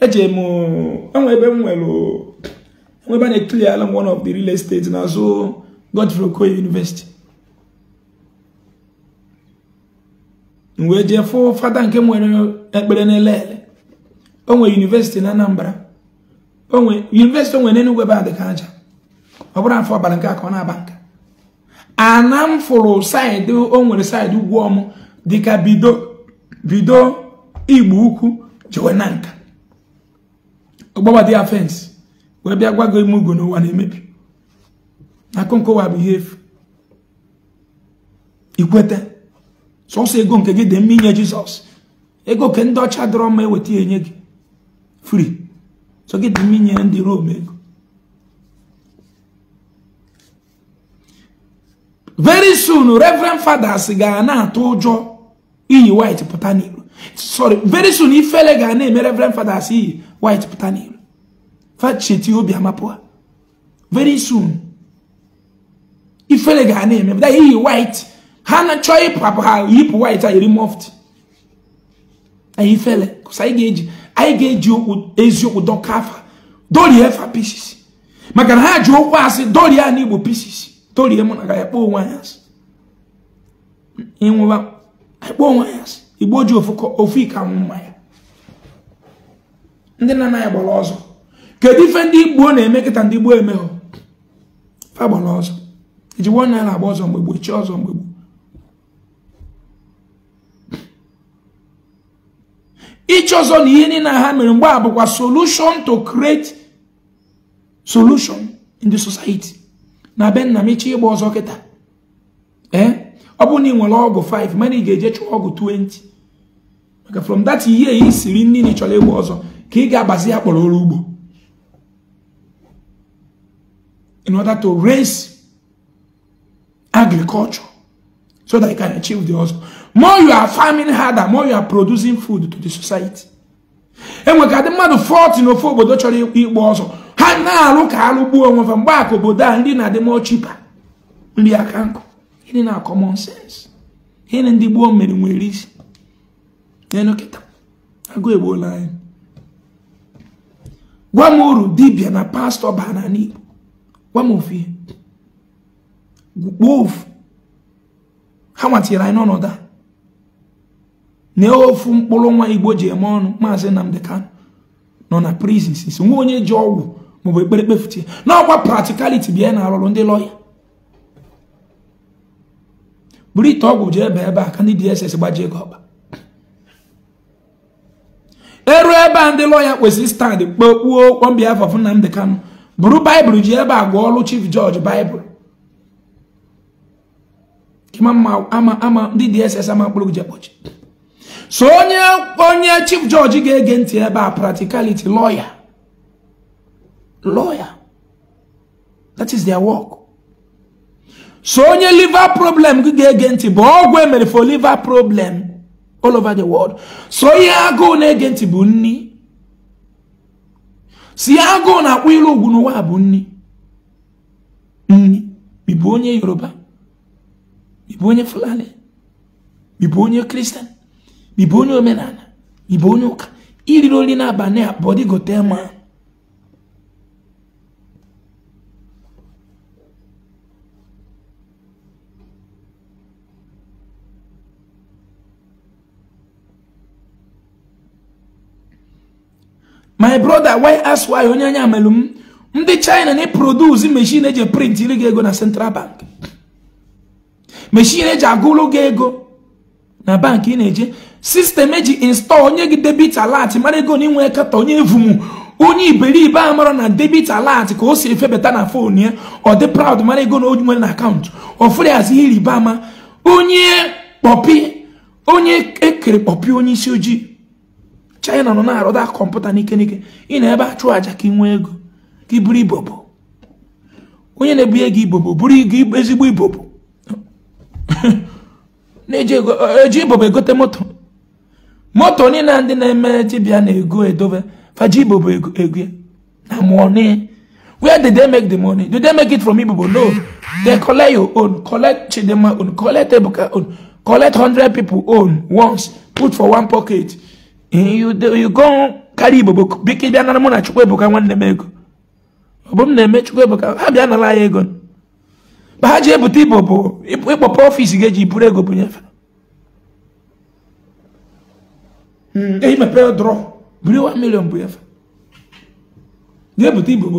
eje m enwe ebe m nwere ebe a na-ekili ala m one of the real estate n'azụ Godfrey Okoye University m wee jee fụ fada nke nwere ekpere n'ele ele o nwere university na Anambra university o nwere n'Enugu ebe a dị ka aja ọ bụrụ afọ abalị nke a ọ na-aba nka ana m fụrụ saịdị o nwere saịdị ugwu ọmụ dịka bido bido igbo ukwu jewe na nka ọgbabadị ya fensị wee bịa gwa gị ime ugo n'ụwa na-emebi wa bụ ihe so ikweta sọsọ ego nke gị dị mma jesus ego ke ndị ọcha dọrọ mma eweta ya enye gị fri so gị dị mma ndị rom very soon reverend fathers ga na-atụ ụjọ iyi white pụta n'iro sorry very soon ifele ga na-eme reverend fathers iyi white pụta n'ilo cheti obi amapụ ha very soon ifele ga na-eme pụta iyi white ha na chọọ ịpụ ha yipụ white a yiri moft anyị ifere kụsa anyị ga-eji anyị ga-eji eziokwu dọka efa pieces maka na ha ji okwu asị dorie a n'igbo pieces dorie mụ na ga ya onwe anyị asị onwe anyị asị ji ofu ike anwụ mmanya ndị na-anaghị gbara ọzọ kedu ife ndị igbo na-eme kịta ndị gboo emehọ fa gbara ọzọ iji nwa naira agba ọzọ mgbe gboo chi ọzọ mgbe gboo ichi ọzọ na ihe niile ha mere mgbe a bụkwa solution to create solution in the society na be nna m ichi ịgba ọzọ kịta ee eh? ọ bụrụ na ị nwere ọgụ 5 mana ị ga-eje chụọ ọgụ 20 maka from that year ị siri nri na ị ịgba ọzọ ka ị ga-agbazi ya kpọrọ ọrụ ugbo in order to raise agriculture so that you can achieve the hustle. More you are farming harder, more you are producing food to the society. enwe ka dị mmadụ 40 n'ofe obodo chọrọ ịgba ọsọ ha na-alụ ka alụ gbuo onwe fa mgbe aka obodo a ndị na-adị mọ chipa nri aka nkụ ịdị na common sense ịdị ndị gboo mere nwere isi na kịta agụ egbuola anyị wɔmoredi bia na pastor baa n'ani wɔmofie wolf hawatịra anyị n'ọnọdụ a na ofu mkpụrụ nwa igbo ma eme ọnụ maazị nnamdị kanụ nọ na prison sisi nwa onye ji ọgwụ maọbụ ekpere kpefutie n'ọkwa practicality bịa na arụrụ ndị lọya buru ite ọgwụ jee ebe ebe a dss gbajie gị ọkpa eru ebe a ndị lọya kwesịrị stand kpokpuo kpọm behalf of Nnamdi Kanu bụrụ baịbụl ji ebe a gụọ ọlụ chief judge baịbụl ama ndị DSS ama mkpụrụ ji ekpochi so onye onye chief judge ga-ege ntị ebe a practicality lawyer lawyer that is their work so onye liver problem gị ga-ege ntị bụ ọgwụ emere for liver problem all over the world so ihe agụụ na-ege bụ nni si agụụ na-akpọ ilu ugwu n'ụwa bụ nni nni ịbụ onye yoruba ịbụ onye fulani ịbụ onye kristian ịbụ onye omenala ịbụ onye ụka iriri oli na abalị abụọ gotel ma my brother why ask why onye anya melum ndị china na eprodusi mechin eji print iri gị ego na central bank mechin eji agụlụ gị ego na bankị ị na-eje sistem eji install onye gị debit alert mara ego na inwe kata onye evumu onye iberibe a mara na debit alert ka o si efebata na fon ya ọ dị proud mara ego na nwere na akaụntụ ihe ama onye kpọpi onye ekere kpọpi onye isi ojii China nọ na arụ da kọmputa n'ike n'ike ị na ebe a chụọ aja ka ị nwee ego ka ị bụrụ ibobo onye na-ebunye gị ibobo bụrụ ezigbo ibobo [LAUGHS] na-eji e, ibobo egote moto moto niile ndị na-eme dibịa na-ego edobe faji ibobo ego na money where did they make the money did they make it from ibobo no they collect your own collect chidema own collect ebuka own collect 100 people own once put for one pocket Eh, you go carry ibobo biko bịa nara mụ na Chukwuebuka nwanne m ego ọ m na-eme Chukwuebuka ha bịa anyị ego mgbe ha ji ibobo ịkpọpụ ga-eji buru ego bunyefe buru 1 million bụ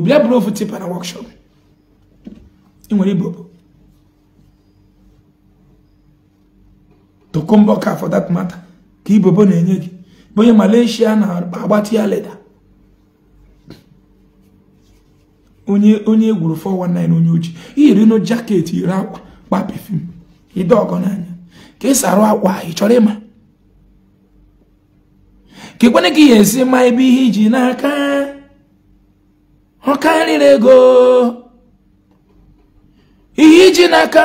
bịa buru ofu tipa na workshop nwere na-enye gị onye Malaysia na agbatị ya leda onye onye egwuru 419 onye oji iyiri no jaket iri akwa kpa pefum ide ọgọ n'anya ka ị arụ akwa ị chọrọ ịma ka ekwenye ka ihe esi ma ebe ihe iji n'aka ọ karịrị ego ihe iji n'aka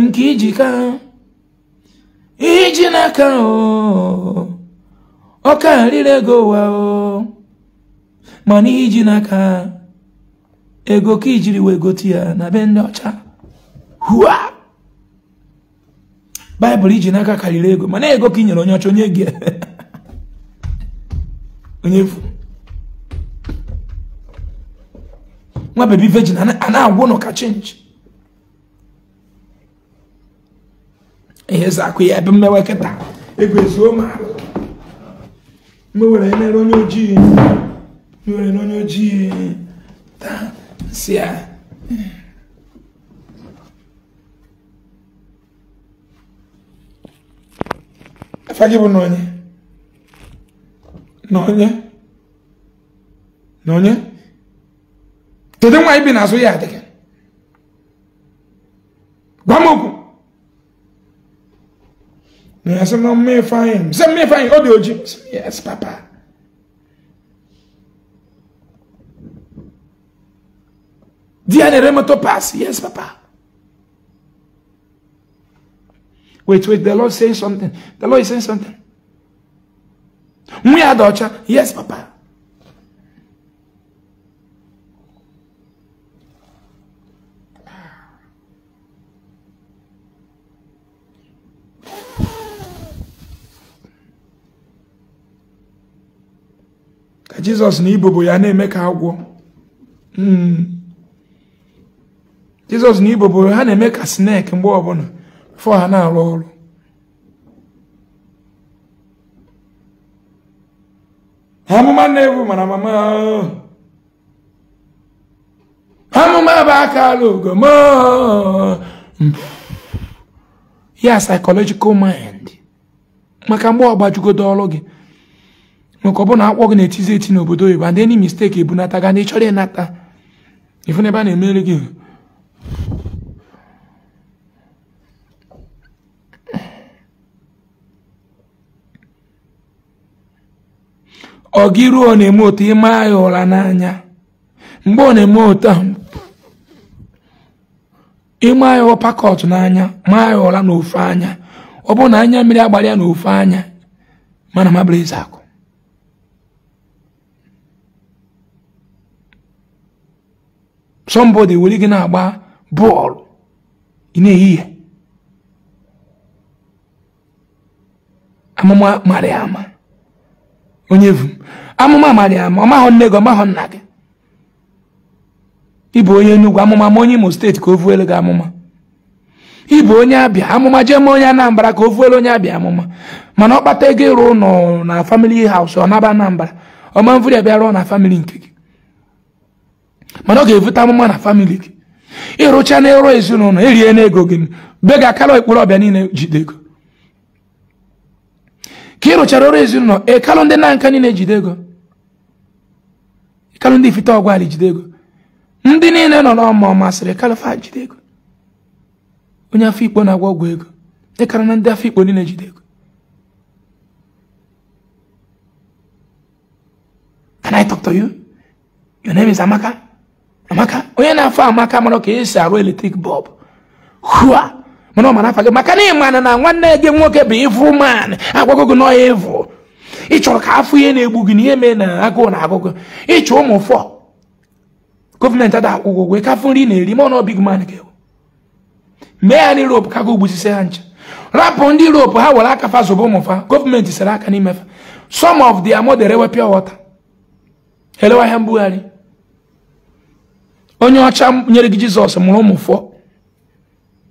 nke iji ka ihe iji n'aka o ọka rịrị ego ụwa ooo mana iji n'aka ego ka ijiri wee gote ya na be ndị ọcha hua baịbụl iji n'aka karịrị ego mana ego ka inyere onye ọcha onye gị [LAUGHS] onye efu nwa bebi vejin a agwụ nọ ka chenji ihe zakụ ya ebe mmewe kịta ego ezuo ma mwere ene ronye ojii mwere ene onye ojii ta si ya efa gị bụ na onye na onye na onye kedu nwaanyị bi n'azụ ya adịghị gwa m okwu Essa não me faz. Você me faz. Oh, Deus. Yes, papá. Diane Remato pass. Yes, papa. Wait, wait. The Lord saying something. The Lord is saying something. We are Yes, papa. jizọs na ibobo ya na-eme ka agwọ hmm. jizọs na ibobo ha na-eme ka snake mgbe ọbụla fọ ha na-arụ ọrụ amụma na-ebu mana mama amụma bụ aka ala ugom ya psychological mind maka mgbe ọ ọgbajugodo ọrụ gị maka ọbụna bụrụ na akpọ gị na-etizi eti n'obodo oyibo and any mistake ebunata ga na ịchọrọ ịnata ifu ebe a na-emere gị ọ gị ruo ọ na-eme otu ịma ya ụra n'anya mgbe ọ na-eme otu a ịma ya pakọt n'anya maa ya ụra n'ofe anya ọ bụrụ na anya mmiri agbara ya n'ofe anya mana mabụrụ eze akụ somebody were gị na-agba bọọlụ ị na ehihie amụma marị ama onye vu amụma marị ama ọmahụ nne gị ọ ọmahụ nna gị ịbụ onye Enugu amụma ma onye Imo steeti ka o vuelu gị amụma ịbụ onye abịa amụma jee ma onye Anambra ka o vuelu onye abịa amụma mana ọ kpata ego ịrụ ụlọ na famili haus ọ naba Anambra ọma mvụrụ ya bịa rụọ na famili nke gị mana ọ ga-evute amụma na famili gị ịrụcha na ịrụ ezinụlọ erie n'ego gị be ga akara ekporo ọbịa niile jide ego ka ị rụchara ọrụ ezinụlọ ịkalụ ndị na nka niile jide ego ịkalụ ndị ifite ọgwalị jide ego ndị niile nọ n'ọma ọ masịrị kalụfa jide ego onye afọ ikpo na-agwa ọgwụ ego ịkara na ndị afọ ikpo niile jide ego Can I talk to you? Your name is Amaka? amaka onye na-afọ amaka mara ka esi arụ eletrik bọlbụ hua mana ọ mara afa gị maka na ịmana na nwanne gị nwoke bụ ịvụ man agwago gị n'ọya ịvụ ị chọrọ ka afọ ihe na-egbu gị na ihe mee na agụụ na agụgụ ịchọ ụmụ fọ gọọmenti ada akwụkwọ ụgwọ ka afọ nri na-eri ma ọ nọọ big man ga e mee ya n'Europe ka ha ncha rapụ ndị Europe ha were aka fa ụmụ ụmụfa gọọmenti sere aka n'imefa some of the mother ewe pure water elewa ihe mbugharị onye ọcha nyere gị jizọs mụrụ ụmụfọ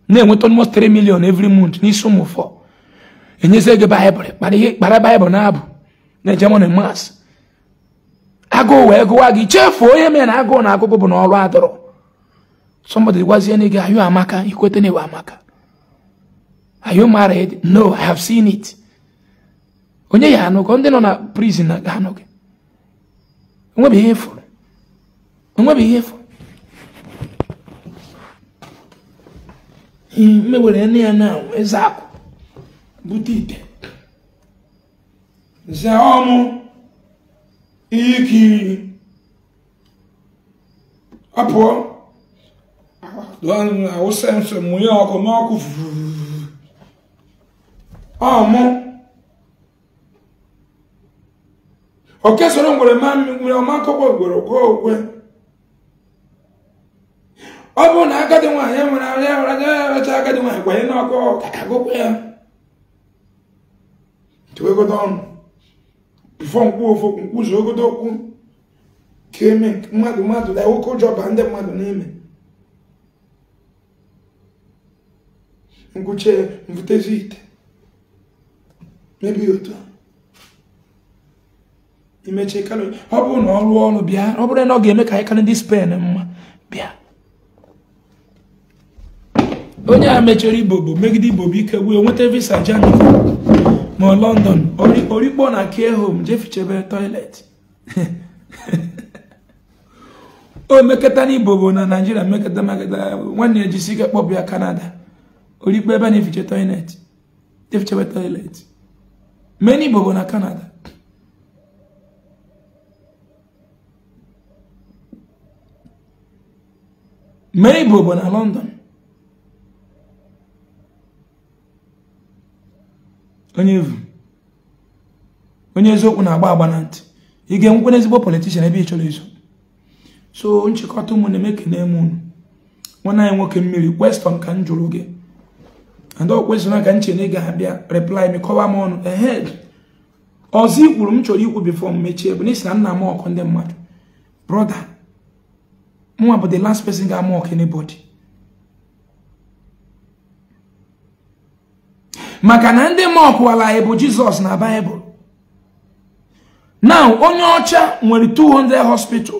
na-enweta almost 3 million every month n'isi ụmụfọ enyezie gị baịbụl kpara ihe kpara baịbụl na-abụ na ejemon mas agụụ wee gụwa gị chefu onye mere na agụụ na agụgụ bụ na ọrụ adọrọ somebody gwazie na gị ayụ amaka Ikweta na ewe amaka are you married no i have seen it onye ya anụgo ndị nọ na prison na ga anụ gị onwebeghị ihe fụrụ mewere nne ya na eze akụ bute ite ze ọmụ ihe ikiri ọ pụọ awụsa nso mụnye ọkụ n'ọkụ ọmụ o kesoro ngwere ma mmiri ọma akọkọ ngwere gụọ ogwe ọ bụrụ na agadi nwaanyị e nwere anya e nwere anya ya racha agadi nwaanyị kwanye n'ọkụ agụkwa ya chewegodo ọnụ bifo nkwu ofu nkwuzu ogodo okwu ka eme mmadụ mmadụ na oke ụjọ ba ndị mmadụ n'ime nkwuche mvutezi ite mebi otu imechi kalori ọ bụrụ na ọ rụọ ọrụ bịa ọ bụrụ na ọ ga-eme ka anyị karị ndị spen mma bịa onye a mechara ibobo megide ibobo ike wee nweta visa germany ma london orikpo na care home jefichebe toilet [LAUGHS] o mekata na ibobo na naijiria mekata meketa nwanne ya jisi ike kpọbụ ya kanada orikpo ebe a na-efiche toilet jefichebe toilet mee na ibobo na kanada mee ibobo na london onye eziokwu na-agba agba na ntị ị ga-enwekwa n'ezigbo politishan ebe ị chọrọ iso so nchịkọta ụmụ na-eme kene m unu nwanne anyị nwoke mmiri kweston ka m jụrụ gị and ọ kwesịrị ka m chere na ị ga-abịa reply m kọwa m ọnụ ehed ọzọ i kwuru m chọrọ ikwu bifo m mechie bụ n'isi na nna m ọkụ ndị mmadụ brọda mwa bụ the last person ga-ama ọkụ anybody maka na ndị ma ọkụwala anyị bụ jizọs na baịbụl now onye ọcha nwere 200 hospital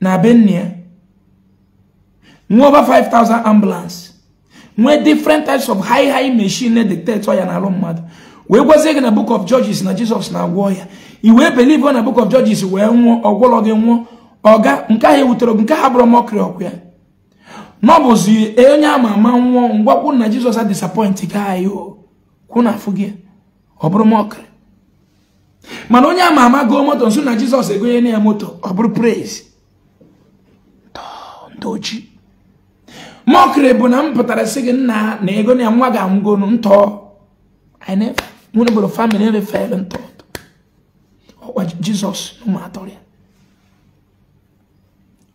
na benia nwee over 5000 ambulance nwee different types of high high machine dictate ya na alụ mmadụ wee gwazie gị na book of judges na jizọs na-agwọ ya i wee believe na book of judges wee nwụọ ọgwụlọ gị nwụọ ọga nke ahụ ewutere gị nke ha bụrụ mọkri ọkụ ya n'ọbụzi onye ama ama nwụọ ngwakwu na jizọs na disappoint gị anyị hụ na afụ gị ọ bụrụ mọkịrị mana onye ama ama goo moto nso na jizọs egonye na ya moto ọ bụrụ praise ndị bụ na m pụtara sị gị nna na ego na ya nwa ga-anwụgonu ntọ famili refere ntọ ọkwa jizọs ụmụ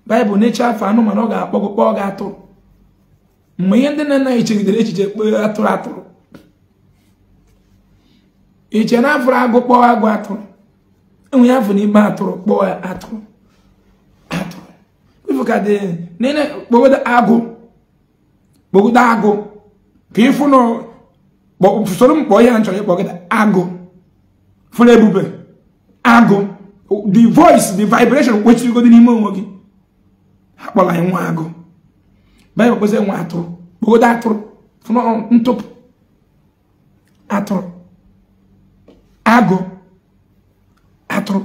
baịbụl na-eche afọ anụmanụ ọ ga-akpọgụkpọ ọ ga-atụrụ mgbe ihe ndị na-anaghị anyị chegidere echiche kpee atụrụ atụrụ iche na afụrụ agụ kpọọ agụ atụrụ enwe ya afụ n'ime atụrụ kpọọ atụrụ atụrụ ifu ka dị nene kpọgodo agụ kpọgodo agụ ka ịfụ na usoro mkpọ ihe nchọrọ ịkpọgodo agụ fụrụ ebube agụ the voice the vibration kwechirigodo n'ime onwe gị ha kpọrọ anyị nwa agụ baịbụl kpezi nwa atụrụ kpọgodo atụrụ fụrụ ntụpụ atụrụ agụ atụrụ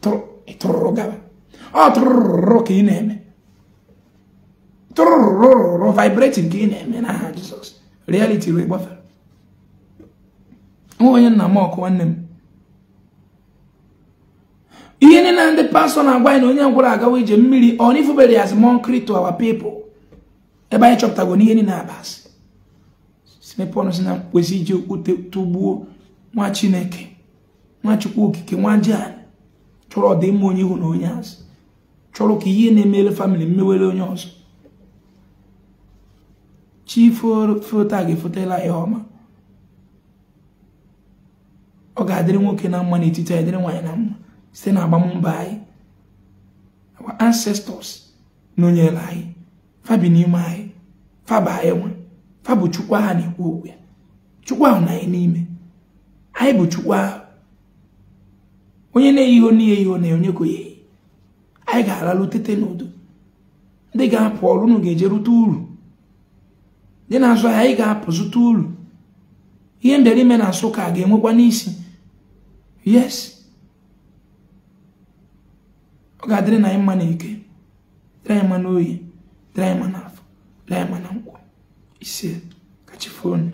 tụrụrụ ọ e tụrụrụ ka ị na-eme tụrụrụrụrụ vibrating ka ị na-eme n'aha Jizọs reality wee gbafere nwa onye nna m ọkụ nwanne m ihe niile na ndị pastọ na-agwa anyị na onye ngwụrụ agawa ije mmiri ọ n'ifubere ya as monk to our people ebe anyị chọpụtago n'ihe niile abasị sine pọl si na kwesị iji okwute tụgbuo nwa chineke nwa chukwu okike nwa ji anyị chọrọ ọdịmma onye ihu na onye azụ chọrọ ka ihe na-emere famịlị mmewere onye ọzọ chi foto a ga-efotela ya ọma ọ ga-adịrị nwoke na mma n'etiti anyị dịrị nwaanyị na mma site na agbammbọ anyị ancestors nọnyere anyị fabi n'ime anyị faba anyị nwa fa bụ chukwu ahụ na-ekwu okwu ya chukwu ahụ na anyị n'ime anyị bụ chukwu ahụ onye na-eyi ihe n'ihe ihe na onye ka eyi anyị ga-aralụ tete n'udo ndị ga-apụ ọrụ unu ga-eje rute uru ndị na-azụ anyị ga-apụ zụta uru ihe ndere ime na nsụka ga-enwekwa n'isi yes ọ ga-adịrị na anyị mma na eke dịrị anyị mma n'oyi dịrị anyị mma n'afọ dịrị anyị mma na nkwụ ise katika foni.